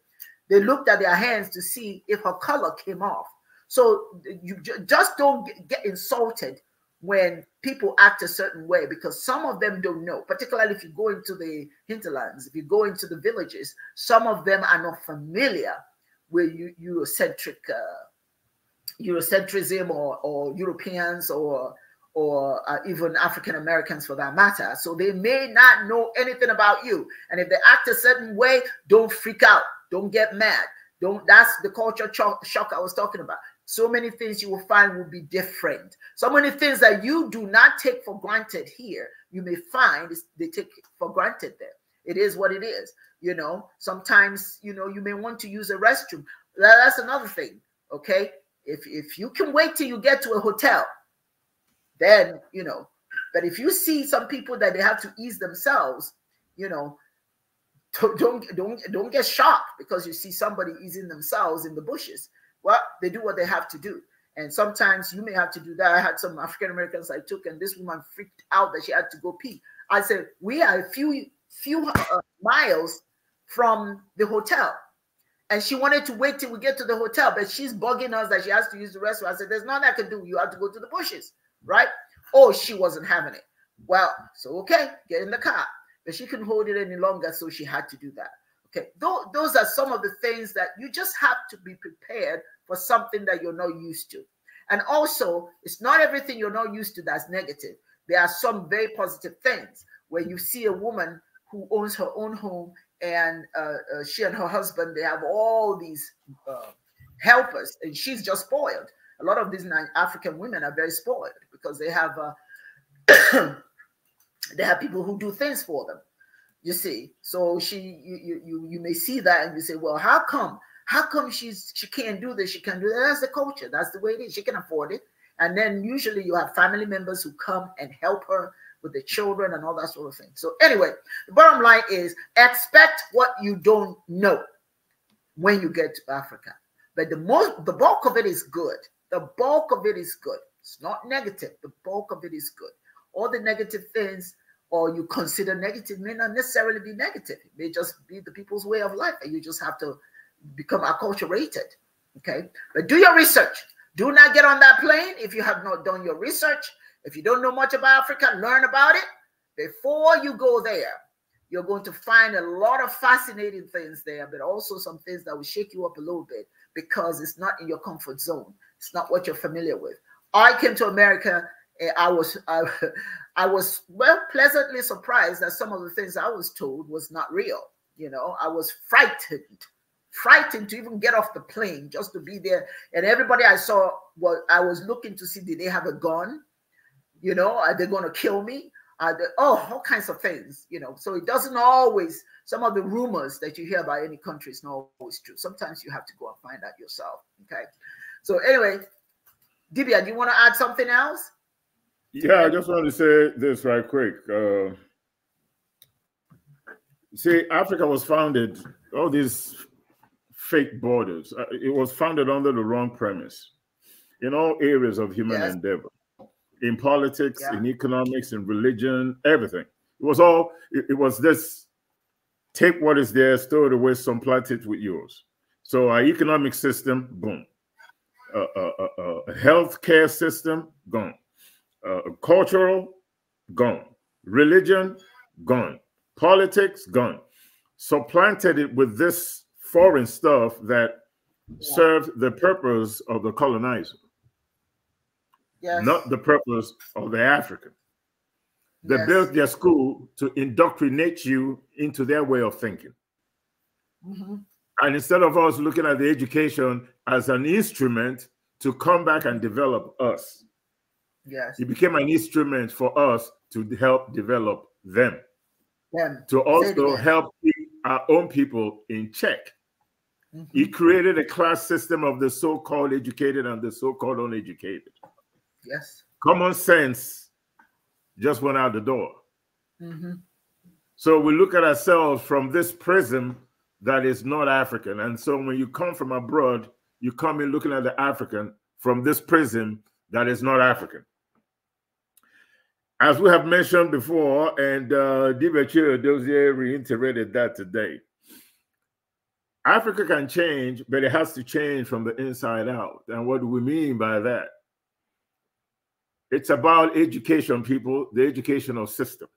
they looked at their hands to see if her color came off. So you just don't get insulted when people act a certain way because some of them don't know, particularly if you go into the hinterlands, if you go into the villages, some of them are not familiar with Eurocentric, uh, Eurocentrism or, or Europeans or or uh, even African Americans for that matter. So they may not know anything about you. And if they act a certain way, don't freak out. Don't get mad. Don't. That's the culture shock I was talking about. So many things you will find will be different. So many things that you do not take for granted here, you may find they take for granted there. It is what it is. You know, sometimes, you know, you may want to use a restroom. That's another thing. Okay. If, if you can wait till you get to a hotel then you know but if you see some people that they have to ease themselves you know don't don't don't get shocked because you see somebody easing themselves in the bushes well they do what they have to do and sometimes you may have to do that i had some african americans i took and this woman freaked out that she had to go pee i said we are a few few uh, miles from the hotel and she wanted to wait till we get to the hotel but she's bugging us that she has to use the restroom i said there's nothing i can do you have to go to the bushes right? Oh, she wasn't having it. Well, so okay, get in the car. But she couldn't hold it any longer, so she had to do that. Okay, those are some of the things that you just have to be prepared for something that you're not used to. And also, it's not everything you're not used to that's negative. There are some very positive things where you see a woman who owns her own home and uh, uh, she and her husband they have all these uh, helpers and she's just spoiled a lot of these african women are very spoiled because they have uh, they have people who do things for them. You see, so she you you you may see that and you say, well, how come? How come she's she can't do this? She can't do that. That's the culture. That's the way it is. She can afford it. And then usually you have family members who come and help her with the children and all that sort of thing. So anyway, the bottom line is expect what you don't know when you get to Africa. But the most the bulk of it is good. The bulk of it is good. It's not negative. The bulk of it is good. All the negative things or you consider negative may not necessarily be negative. It may just be the people's way of life, and you just have to become acculturated. Okay, but do your research. Do not get on that plane if you have not done your research. If you don't know much about Africa, learn about it before you go there. You're going to find a lot of fascinating things there, but also some things that will shake you up a little bit because it's not in your comfort zone. It's not what you're familiar with. I came to America, I was I, I was well pleasantly surprised that some of the things I was told was not real. You know, I was frightened, frightened to even get off the plane just to be there. And everybody I saw well, I was looking to see did they have a gun? You know, are they going to kill me? Are they, oh, all kinds of things. You know, so it doesn't always. Some of the rumors that you hear about any country is not always true. Sometimes you have to go and find out yourself. Okay, so anyway, Dibia, do you want to add something else? Yeah, I just want to say this right quick. Uh, see, Africa was founded, all these fake borders, uh, it was founded under the wrong premise in all areas of human yes. endeavor in politics, yeah. in economics, in religion, everything. It was all, it, it, was this take what is there, store it away, some plant it with yours. So our economic system, boom a, a, health care system gone, uh, cultural gone, religion gone, politics gone. supplanted it with this foreign stuff that yeah. served the purpose of the colonizer, yes. not the purpose of the African. They yes. built their school to indoctrinate you into their way of thinking. Mm -hmm. And instead of us looking at the education as an instrument to come back and develop us, yes, it became an instrument for us to help develop them, them. to also help our own people in check. Mm -hmm. He created a class system of the so called educated and the so called uneducated. Yes. Common sense just went out the door. Mm -hmm. So we look at ourselves from this prism that is not African. And so when you come from abroad, you come in looking at the African from this prism that is not African. As we have mentioned before, and uh, Dibachir Dozier reiterated that today, Africa can change, but it has to change from the inside out. And what do we mean by that? It's about education, people, the educational system.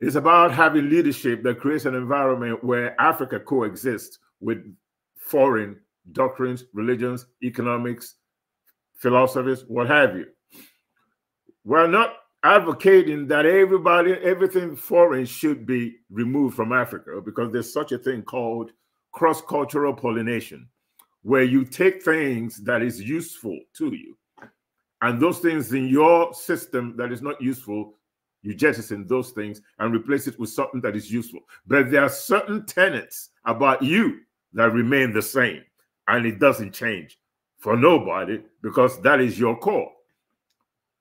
It's about having leadership that creates an environment where Africa coexists with foreign doctrines, religions, economics, philosophies, what have you. We're not advocating that everybody, everything foreign should be removed from Africa because there's such a thing called cross-cultural pollination, where you take things that is useful to you, and those things in your system that is not useful you jettison those things and replace it with something that is useful. But there are certain tenets about you that remain the same and it doesn't change for nobody because that is your core.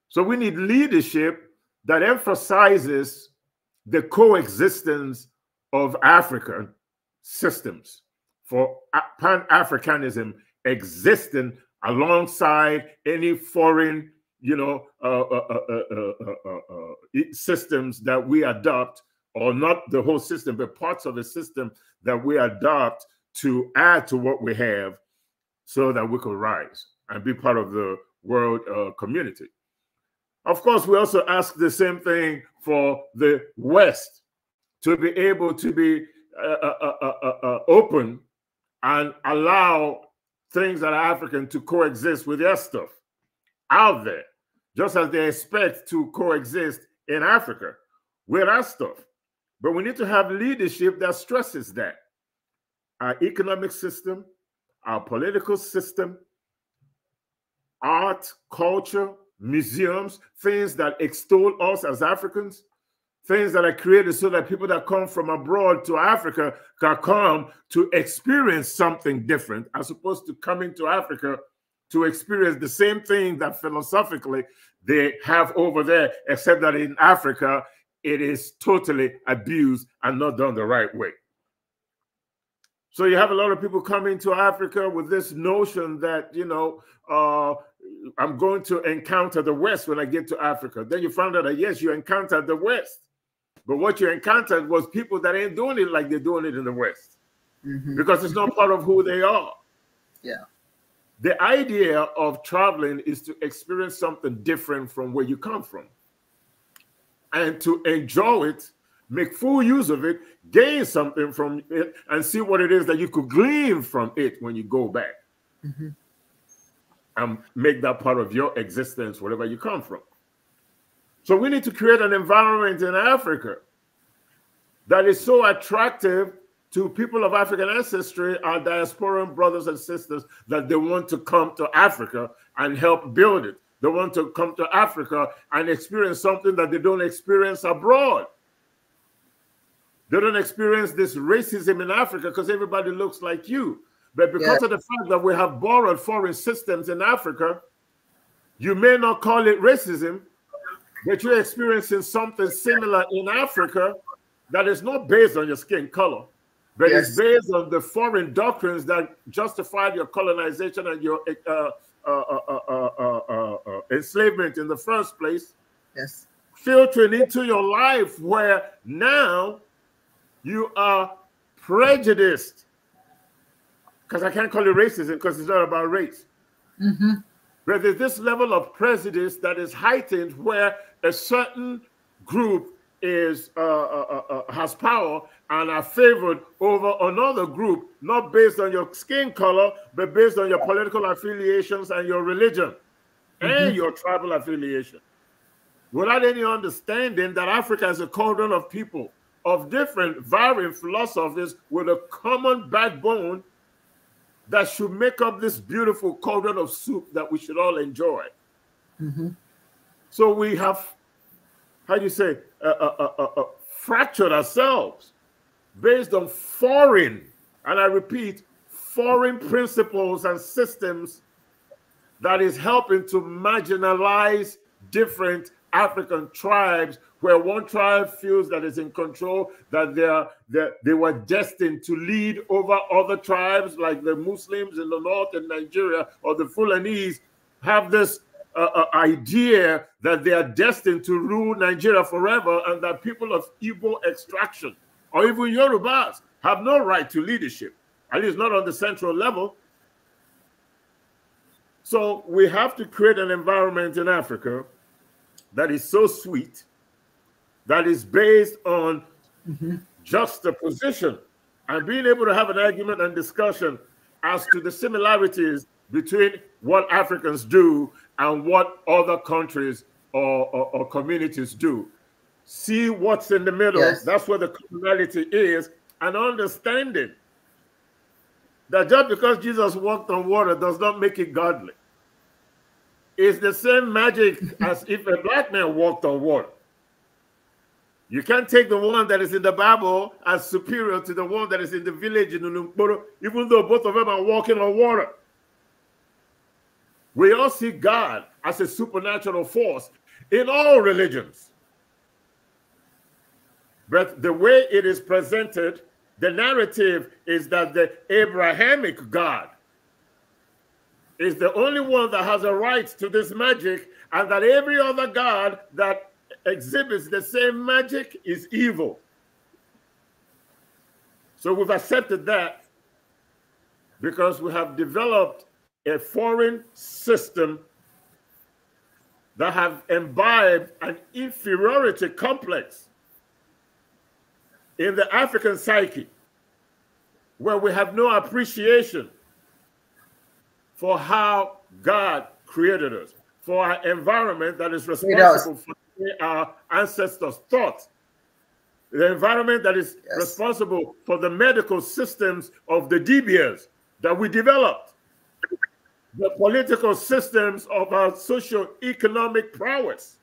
So we need leadership that emphasizes the coexistence of African systems for Pan Africanism existing alongside any foreign you know, uh, uh, uh, systems that we adopt, or not the whole system, but parts of the system that we adopt to add to what we have so that we could rise and be part of the world community. Of course, we also ask the same thing for the West to be able to be open and allow things that are African to coexist with their stuff out there, just as they expect to coexist in Africa with our stuff. But we need to have leadership that stresses that. Our economic system, our political system, art, culture, museums, things that extol us as Africans, things that are created so that people that come from abroad to Africa can come to experience something different as opposed to coming to Africa to experience the same thing that philosophically they have over there, except that in Africa, it is totally abused and not done the right way. So you have a lot of people coming to Africa with this notion that, you know, uh, I'm going to encounter the West when I get to Africa. Then you found out that, yes, you encountered the West. But what you encountered was people that ain't doing it like they're doing it in the West mm -hmm. because it's not part of who they are. Yeah the idea of traveling is to experience something different from where you come from and to enjoy it make full use of it gain something from it and see what it is that you could glean from it when you go back mm -hmm. and make that part of your existence wherever you come from so we need to create an environment in africa that is so attractive to people of African ancestry, our diasporan brothers and sisters, that they want to come to Africa and help build it. They want to come to Africa and experience something that they don't experience abroad. They don't experience this racism in Africa because everybody looks like you. But because yeah. of the fact that we have borrowed foreign systems in Africa, you may not call it racism, but you're experiencing something similar in Africa that is not based on your skin color but yes. it's based on the foreign doctrines that justified your colonization and your uh uh uh, uh, uh, uh, enslavement in the first place. Yes. Filtering into your life where now you are prejudiced. Because I can't call it racism because it's not about race. Mm -hmm. But there's this level of prejudice that is heightened where a certain group is uh, uh, uh, uh, has power and are favored over another group, not based on your skin color, but based on your political affiliations and your religion mm -hmm. and mm-hmm. your tribal affiliation. Without any understanding that Africa is a cauldron of people of different, varying philosophies with a common backbone that should make up this beautiful cauldron of soup that we should all enjoy. Mm -hmm. So we have how do you say, uh uh, uh, uh, uh, fractured ourselves based on foreign, and I repeat, foreign principles and systems that is helping to marginalize different African tribes where one tribe feels that is in control, that they are that they were destined to lead over other tribes, like the Muslims in the north in Nigeria or the Fulanese, have this uh, idea that they are destined to rule Nigeria forever and that people of Igbo extraction or even Yorubas have no right to leadership, at least not on the central level. So we have to create an environment in Africa that is so sweet, that is based on mm -hmm. position and being able to have an argument and discussion as to the similarities between what Africans do and what other countries or, or, or communities do. See what's in the middle. Yes. That's where the commonality is, and understanding that just because Jesus walked on water does not make it godly. It's the same magic as if a black man walked on water. You can't take the one that is in the Bible as superior to the one that is in the village in Ulumkoro, even though both of them are walking on water. We all see God as a supernatural force in all religions. But the way it is presented, the narrative is that the Abrahamic God is the only one that has a right to this magic, and that every other God that exhibits the same magic is evil. So we've accepted that because we have developed a foreign system that have imbibed an inferiority complex in the African psyche where we have no appreciation for how God created us, for our environment that is responsible for our ancestors' thoughts, the environment that is yes. responsible for the medical systems of the DBS that we developed the political systems of our social, economic prowess.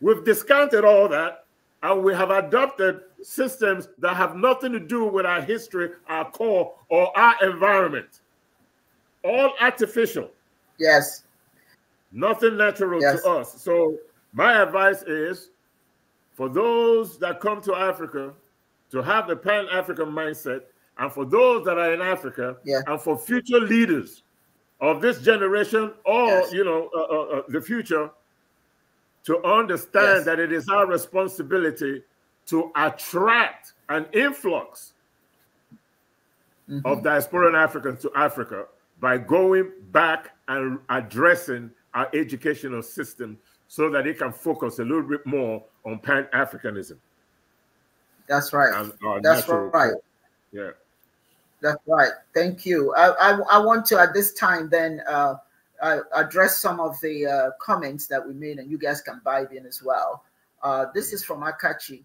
We've discounted all that and we have adopted systems that have nothing to do with our history, our core, or our environment. All artificial. Yes. Nothing natural yes. to us. So, my advice is for those that come to Africa to have the pan African mindset, and for those that are in Africa, yeah. and for future leaders of this generation or yes. you know uh, uh, uh, the future to understand yes. that it is our responsibility to attract an influx mm -hmm. of diasporan Africans to Africa by going back and addressing our educational system so that it can focus a little bit more on pan Africanism. That's right. That's right. Yeah. That's right. Thank you. I, I, I want to, at this time, then uh, address some of the uh, comments that we made, and you guys can vibe in as well. Uh, this is from Akachi.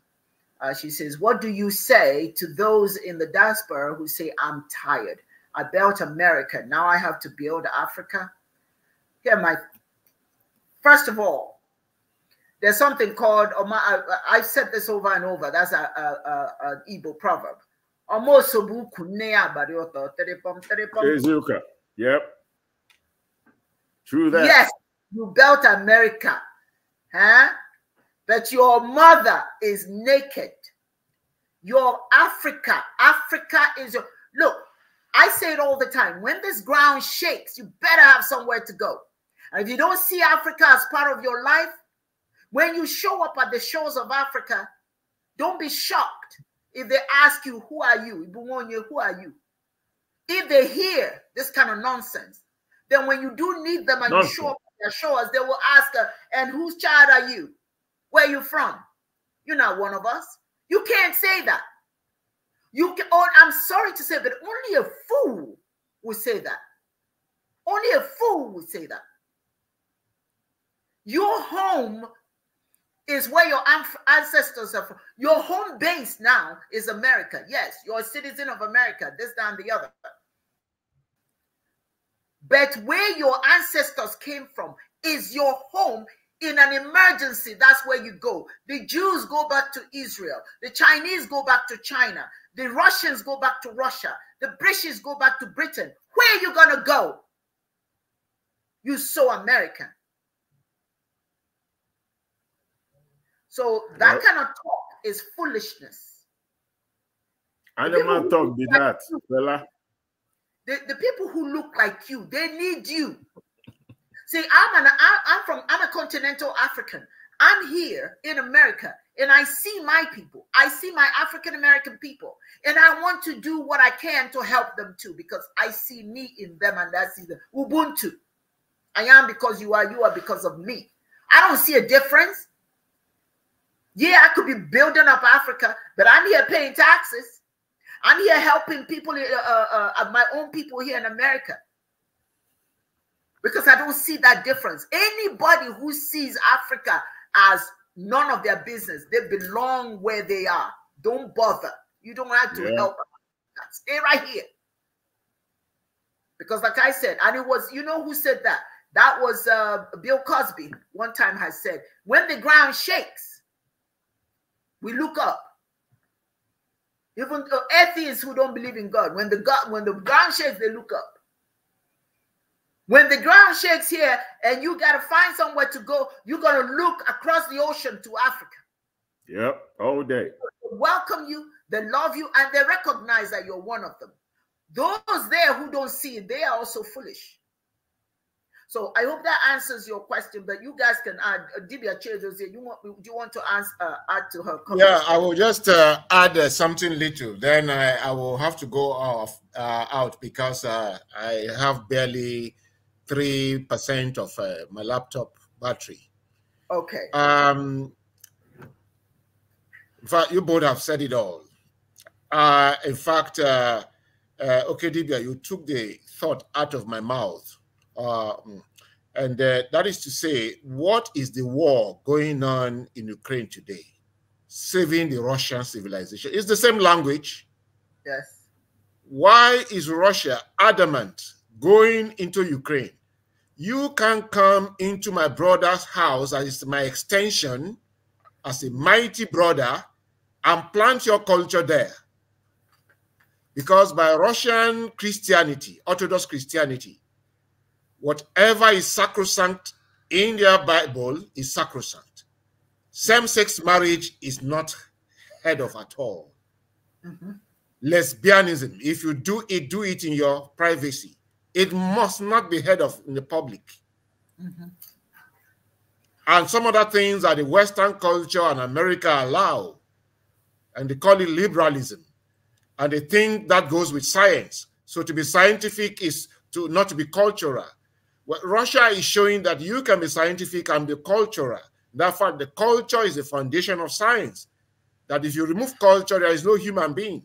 Uh, she says, What do you say to those in the diaspora who say, I'm tired? I built America. Now I have to build Africa. Here, my first of all, there's something called I've said this over and over. That's a, a, a, an Igbo proverb ọmaosobu ukwu nne ya abalị ụtọ yep true that yes you built america huh? but your mother is naked your africa africa is your look i say it all the time when this ground shakes you better have somewhere to go and if you don't see africa as part of your life when you show up at the shores of africa don't be shocked if they ask you, who are you? Who are you? If they hear this kind of nonsense, then when you do need them and nonsense. you show up on their shores, they will ask, uh, and whose child are you? Where are you from? You're not one of us. You can't say that. You can, oh, I'm sorry to say, but only a fool would say that. Only a fool would say that. Your home is where your ancestors are from. Your home base now is America. Yes, you're a citizen of America, this, that, and the other. But where your ancestors came from is your home. In an emergency, that's where you go. The Jews go back to Israel. The Chinese go back to China. The Russians go back to Russia. The British go back to Britain. Where are you going to go? You so American. So that yep. kind of talk is foolishness. Animal talk did like that, you, fella. The, the people who look like you, they need you. See, I'm an I, am from I'm a continental African. I'm here in America and I see my people. I see my African American people and I want to do what I can to help them too because I see me in them and that's the Ubuntu. I am because you are, you are because of me. I don't see a difference. Yeah, I could be building up Africa, but I'm here paying taxes. I'm here helping people, uh, uh, uh my own people here in America. Because I don't see that difference. Anybody who sees Africa as none of their business, they belong where they are. Don't bother. You don't have to yeah. help. Stay right here. Because, like I said, and it was, you know who said that? That was uh, Bill Cosby, one time, has said, when the ground shakes, we look up. Even atheists who don't believe in God, when the God, when the ground shakes, they look up. When the ground shakes here and you gotta find somewhere to go, you're gonna look across the ocean to Africa. Yep, all day. welcome you, they love you, and they recognize that you're one of them. Those there who don't see they are also foolish. So I hope that answers your question, but you guys can add. Uh, Dibia Chedos, you want do you want to ask, uh, add to her? Comment? Yeah, I will just uh, add uh, something little. Then I, I, will have to go off uh, out because uh, I have barely three percent of uh, my laptop battery. Okay. Um. In fact, you both have said it all. in fact, okay, Dibia, you took the thought out of my mouth um, and uh, that is to say, what is the war going on in Ukraine today? Saving the Russian civilization. It's the same language. Yes. Why is Russia adamant going into Ukraine? You can come into my brother's house as my extension, as a mighty brother, and plant your culture there. Because by Russian Christianity, Orthodox Christianity, whatever is sacrosanct in their Bible is sacrosanct. Same-sex marriage is not heard of at all. Mm -hmm. Lesbianism, if you do it, do it in your privacy. It must not be heard of in the public. Mm -hmm. And some other things that the Western culture and America allow, and they call it liberalism. And they think that goes with science. So to be scientific is to not to be cultural well, Russia is showing that you can be scientific and be cultural. Therefore, the culture is the foundation of science. That if you remove culture, there is no human being.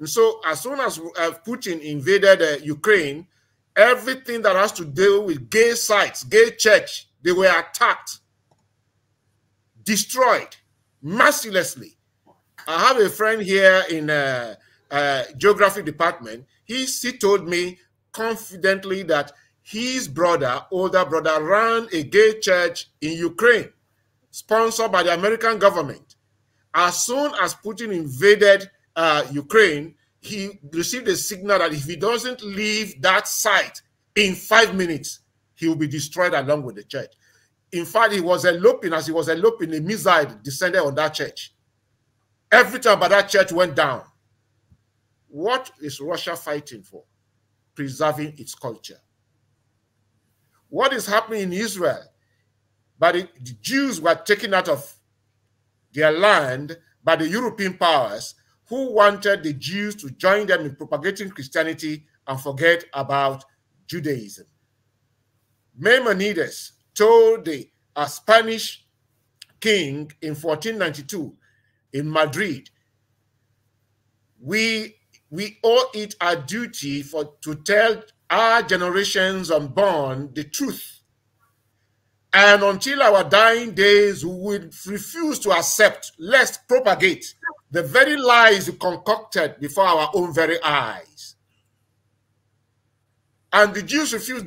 And so, as soon as uh, Putin invaded uh, Ukraine, everything that has to do with gay sites, gay church, they were attacked, destroyed mercilessly. I have a friend here in uh, uh, geography department. He, he told me confidently that his brother, older brother, ran a gay church in Ukraine, sponsored by the American government. As soon as Putin invaded uh, Ukraine, he received a signal that if he doesn't leave that site in five minutes, he will be destroyed along with the church. In fact, he was eloping. As he was eloping, a missile descended on that church. Everything about that church went down. What is Russia fighting for? Preserving its culture what is happening in Israel. But the, the Jews were taken out of their land by the European powers who wanted the Jews to join them in propagating Christianity and forget about Judaism. Maimonides told the a Spanish king in 1492 in Madrid, we, we owe it our duty for, to tell our generations unborn the truth. And until our dying days, we would refuse to accept, lest propagate the very lies concocted before our own very eyes. And the Jews refused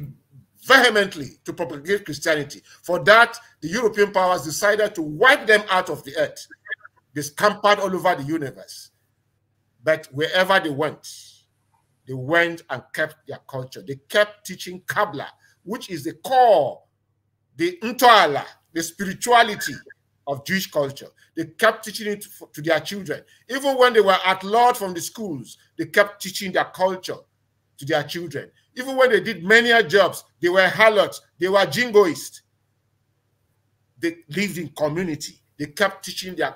vehemently to propagate Christianity. For that, the European powers decided to wipe them out of the earth, they scampered all over the universe. But wherever they went, they went and kept their culture. They kept teaching Kabbalah, which is the core, the Ntoala, the spirituality of Jewish culture. They kept teaching it to their children. Even when they were at large from the schools, they kept teaching their culture to their children. Even when they did menial jobs, they were harlots, they were jingoists. They lived in community. They kept teaching their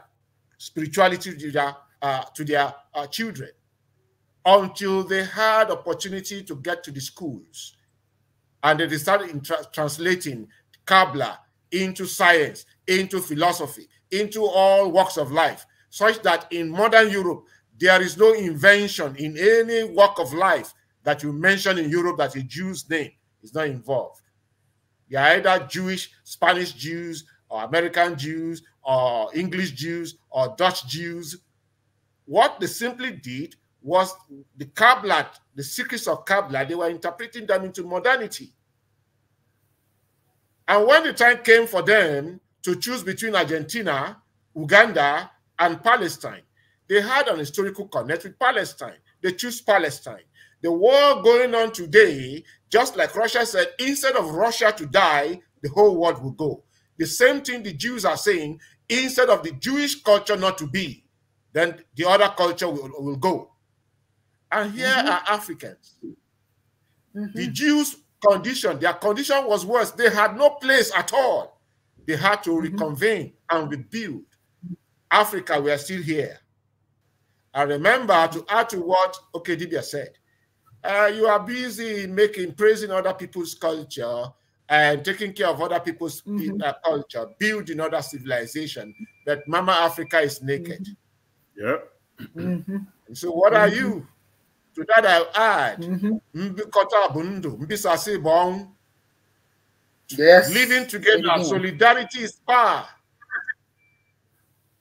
spirituality to their, uh, to their uh, children until they had opportunity to get to the schools. And they started tra translating Kabbalah into science, into philosophy, into all walks of life, such that in modern Europe, there is no invention in any walk of life that you mention in Europe that a Jew's name is not involved. You are either Jewish, Spanish Jews, or American Jews, or English Jews, or Dutch Jews. What they simply did was the Kabbalah, the secrets of Kabbalah, they were interpreting them into modernity. And when the time came for them to choose between Argentina, Uganda, and Palestine, they had an historical connect with Palestine. They chose Palestine. The war going on today, just like Russia said, instead of Russia to die, the whole world will go. The same thing the Jews are saying, instead of the Jewish culture not to be, then the other culture will, will go. And here mm-hmm. are Africans. Mm-hmm. The Jews' condition, their condition was worse. They had no place at all. They had to mm-hmm. reconvene and rebuild. Africa, we are still here. I remember to add to what Okedibia said. Uh, you are busy making praising other people's culture and taking care of other people's mm-hmm. Uh, culture, building other civilization. But Mama Africa is naked. Mm-hmm. Yeah. Mm-hmm. So what are mm-hmm. you? To that I add, mm-hmm. mbikota bụ Yes. Living together, mm -hmm. solidarity is power.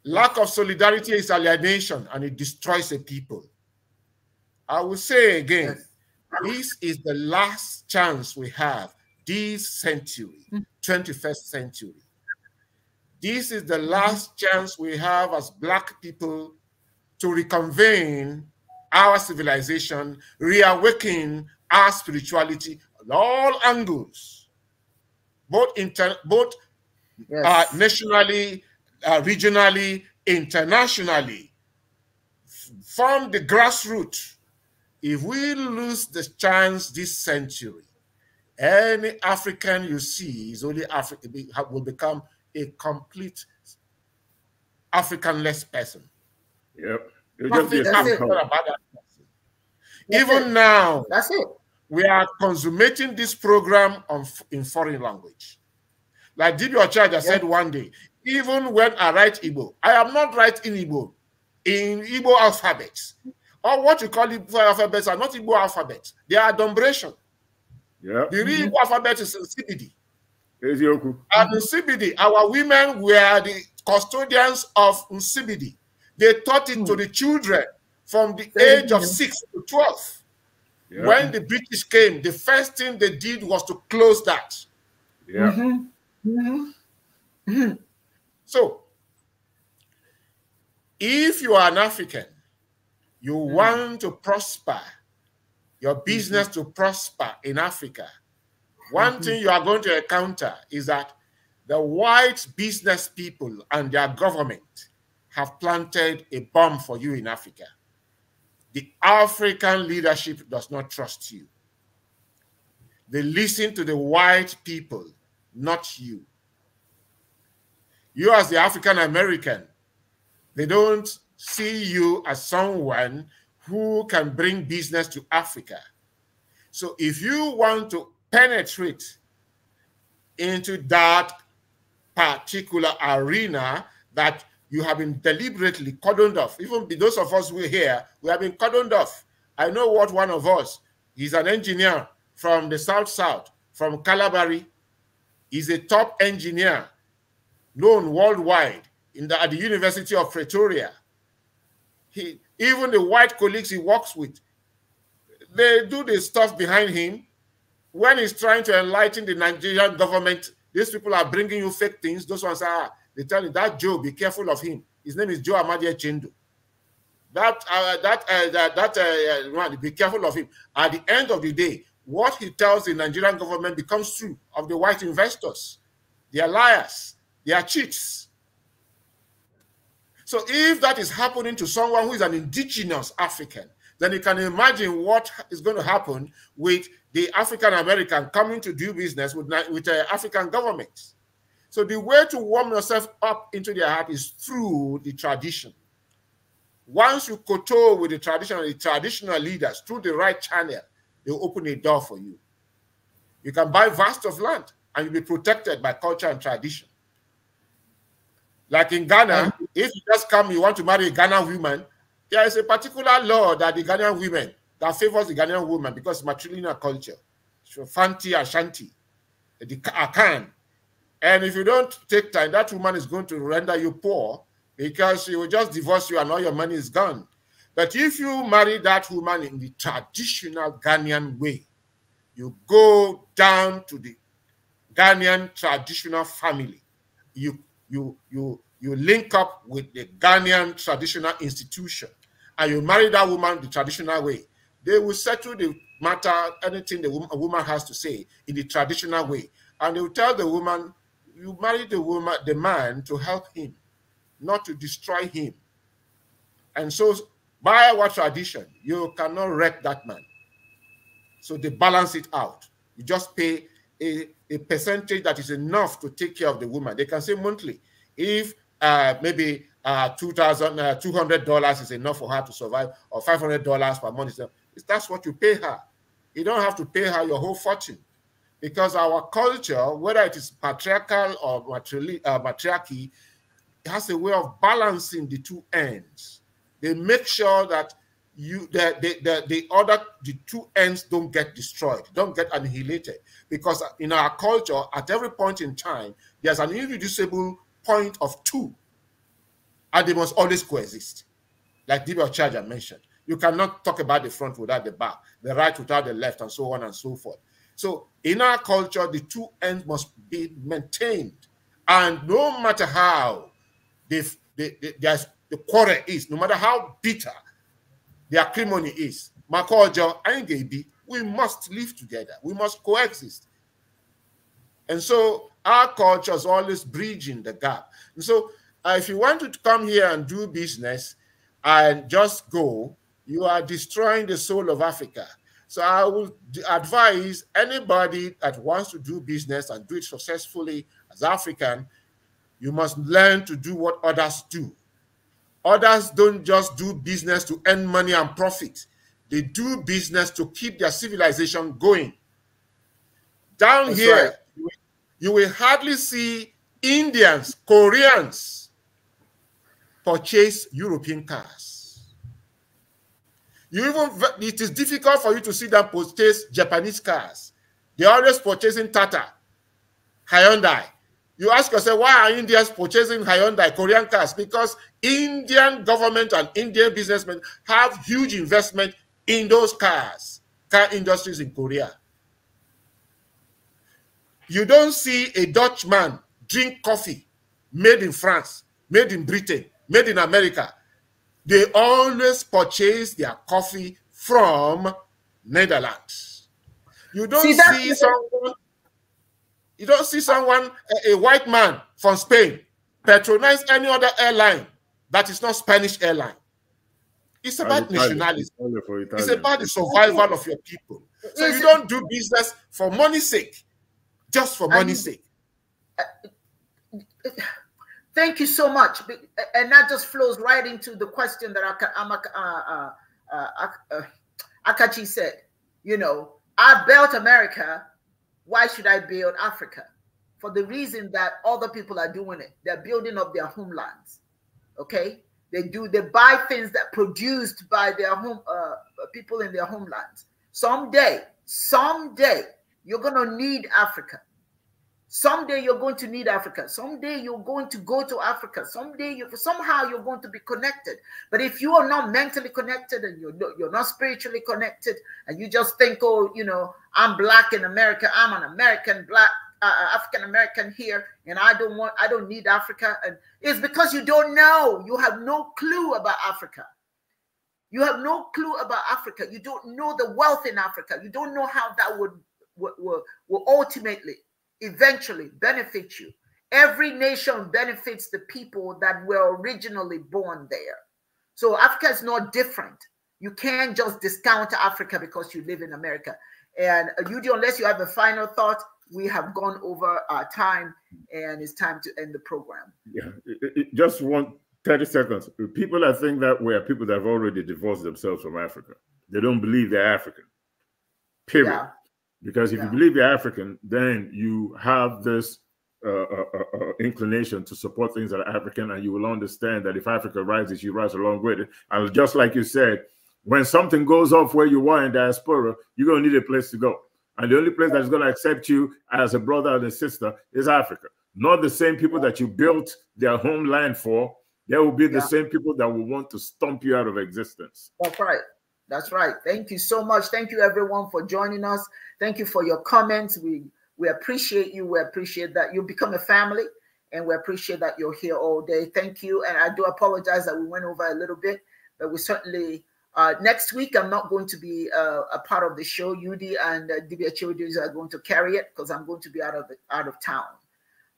Lack of solidarity is alienation and it destroys a people. I will say again, yes. this is the last chance we have this century, 21st mm. century. This is the mm-hmm. last chance we have as black people to reconvene our civilization, reawakening our spirituality at all angles, both inter both uh, yes. uh, nationally, uh, regionally, internationally, from the grassroots. If we lose the chance this century, any African you see is only Africa will become a complete Africanless person. Yep it just Even it. now, that's it. We are consummating this program on, in foreign language. Like Didi Ochaja yeah. said one day, even when I write Igbo, I am not writing Igbo in Igbo alphabets. Or what you call Igbo alphabets are not Igbo alphabets. They are adumbration. Yeah. The real mm -hmm. alphabet is in CBD. And in CBD, our women were the custodians of CBD. They taught it to hmm. the children from the age of 6 to 12. Yeah. When the British came, the first thing they did was to close that. Yeah. Mm -hmm. Mm -hmm. So, if you are an African, you mm -hmm. want to prosper, your hmm. business to prosper in Africa, one hmm. thing you are going to encounter is that the white business people and their government have planted a bomb for you in Africa. The African leadership does not trust you. They listen to the white people, not you. You, as the African American, they don't see you as someone who can bring business to Africa. So, if you want to penetrate into that particular arena that you have been deliberately cordoned off. Even those of us who are here, we have been cordoned off. I know what one of us, he's an engineer from the South South, from Calabari. He's a top engineer known worldwide in the, at the University of Pretoria. He, even the white colleagues he works with, they do the stuff behind him. When he's trying to enlighten the Nigerian government, these people are bringing you fake things. Those ones are they tell you that Joe, be careful of him. His name is Joe Amadia Chindu. That uh, that uh, that, uh, uh, man, be careful of him. At the end of the day, what he tells the Nigerian government becomes true of the white investors. They are liars. They are cheats. So if that is happening to someone who is an indigenous African, then you can imagine what is going to happen with the African American coming to do business with, with uh, African governments. So the way to warm yourself up into their heart is through the tradition. Once you kowtow with the traditional, the traditional leaders through the right channel, they'll open a door for you. You can buy vast of land and you'll be protected by culture and tradition. Like in Ghana, um, if you just come, you want to marry a Ghanaian woman, there is a particular law that the Ghanaian women that favors the Ghanaian woman because matrilineal culture. So Fanti Ashanti, the Akan, and if you don't take time, that woman is going to render you poor because she will just divorce you and all your money is gone. But if you marry that woman in the traditional Ghanaian way, you go down to the Ghanaian traditional family. You you you you link up with the Ghanaian traditional institution and you marry that woman the traditional way. They will settle the matter, anything the woman, woman has to say in the traditional way. And they will tell the woman you marry the woman, the man to help him, not to destroy him. And so by our tradition, you cannot wreck that man. So they balance it out. You just pay a, a percentage that is enough to take care of the woman. They can say monthly, if uh, maybe uh, $2,200 uh, is enough for her to survive, or $500 per month, is enough. that's what you pay her. You don't have to pay her your whole fortune because our culture, whether it is patriarchal or matriarchy, uh, matriarchy has a way of balancing the two ends. They make sure that you that the, the, the other the two ends don't get destroyed, don't get annihilated, because in our culture, at every point in time, there's an irreducible point of two, and they must always coexist. Like Dibia Charger mentioned, you cannot talk about the front without the back, the right without the left, and so on and so forth. So in our culture, the two ends must be maintained. And no matter how the the quarrel is, no matter how bitter the acrimony is, Makojo and Gabi, we must live together. We must coexist. And so our culture is always bridging the gap. And so uh, if you want to come here and do business and just go, you are destroying the soul of Africa. So I would advise anybody that wants to do business and do it successfully as African, you must learn to do what others do. Others don't just do business to earn money and profit. They do business to keep their civilization going. Down That's here, right. you, will, you will hardly see Indians, Koreans purchase European cars. You even it is difficult for you to see them purchase Japanese cars. They're always purchasing Tata, Hyundai. You ask yourself, why are Indians purchasing Hyundai Korean cars? Because Indian government and Indian businessmen have huge investment in those cars, car industries in Korea. You don't see a Dutchman drink coffee made in France, made in Britain, made in America, they always purchase their coffee from Netherlands. You don't see, see someone, you don't see someone, a, a white man from Spain, patronize any other airline that is not Spanish airline. It's about Italian, Italian It's about the survival of your people. So you don't do business for money's sake, just for money's sake. Uh, Thank you so much. And that just flows right into the question that Akachi uh, uh, uh, uh said. You know, I built America. Why should I build Africa? For the reason that other people are doing it. They're building up their homelands. Okay? They do, they buy things that produced by their home uh, people in their homelands. Someday, someday, you're going to need Africa. Someday you're going to need Africa. Someday you're going to go to Africa. Someday you somehow you're going to be connected. But if you are not mentally connected and you're you're not spiritually connected, and you just think, oh, you know, I'm black in America. I'm an American black uh, uh, African American here, and I don't want I don't need Africa. And it's because you don't know. You have no clue about Africa. You have no clue about Africa. You don't know the wealth in Africa. You don't know how that would will ultimately eventually benefit you. Every nation benefits the people that were originally born there. So Africa is not different. You can't just discount Africa because you live in America. And uh, Yudi, unless you have a final thought, we have gone over our time and it's time to end the program. Yeah, it, it, just one 30 seconds. People that think that way are people that have already divorced themselves from Africa. They don't believe they're African. Period. Yeah. Because if yeah. you believe you're African, then you have this uh, uh, uh, uh, inclination to support things that are African, and you will understand that if Africa rises, you rise along with it. And just like you said, when something goes off where you are in diaspora, you're going to need a place to go. And the only place that's going to accept you as a brother and a sister is Africa. Not the same people that you built their homeland for. There will be the yeah. same people that will want to stomp you out of existence. That's right. That's right. Thank you so much. Thank you everyone for joining us. Thank you for your comments. We we appreciate you. We appreciate that you become a family and we appreciate that you're here all day. Thank you. And I do apologize that we went over a little bit, but we certainly uh, next week I'm not going to be uh, a part of the show. UD and uh, Dibia Children's are going to carry it because I'm going to be out of the, out of town.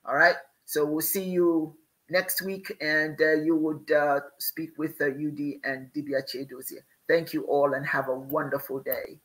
All right. So we'll see you next week, and uh, you would uh, speak with uh, UD and Dibia Chedosia. Thank you all and have a wonderful day.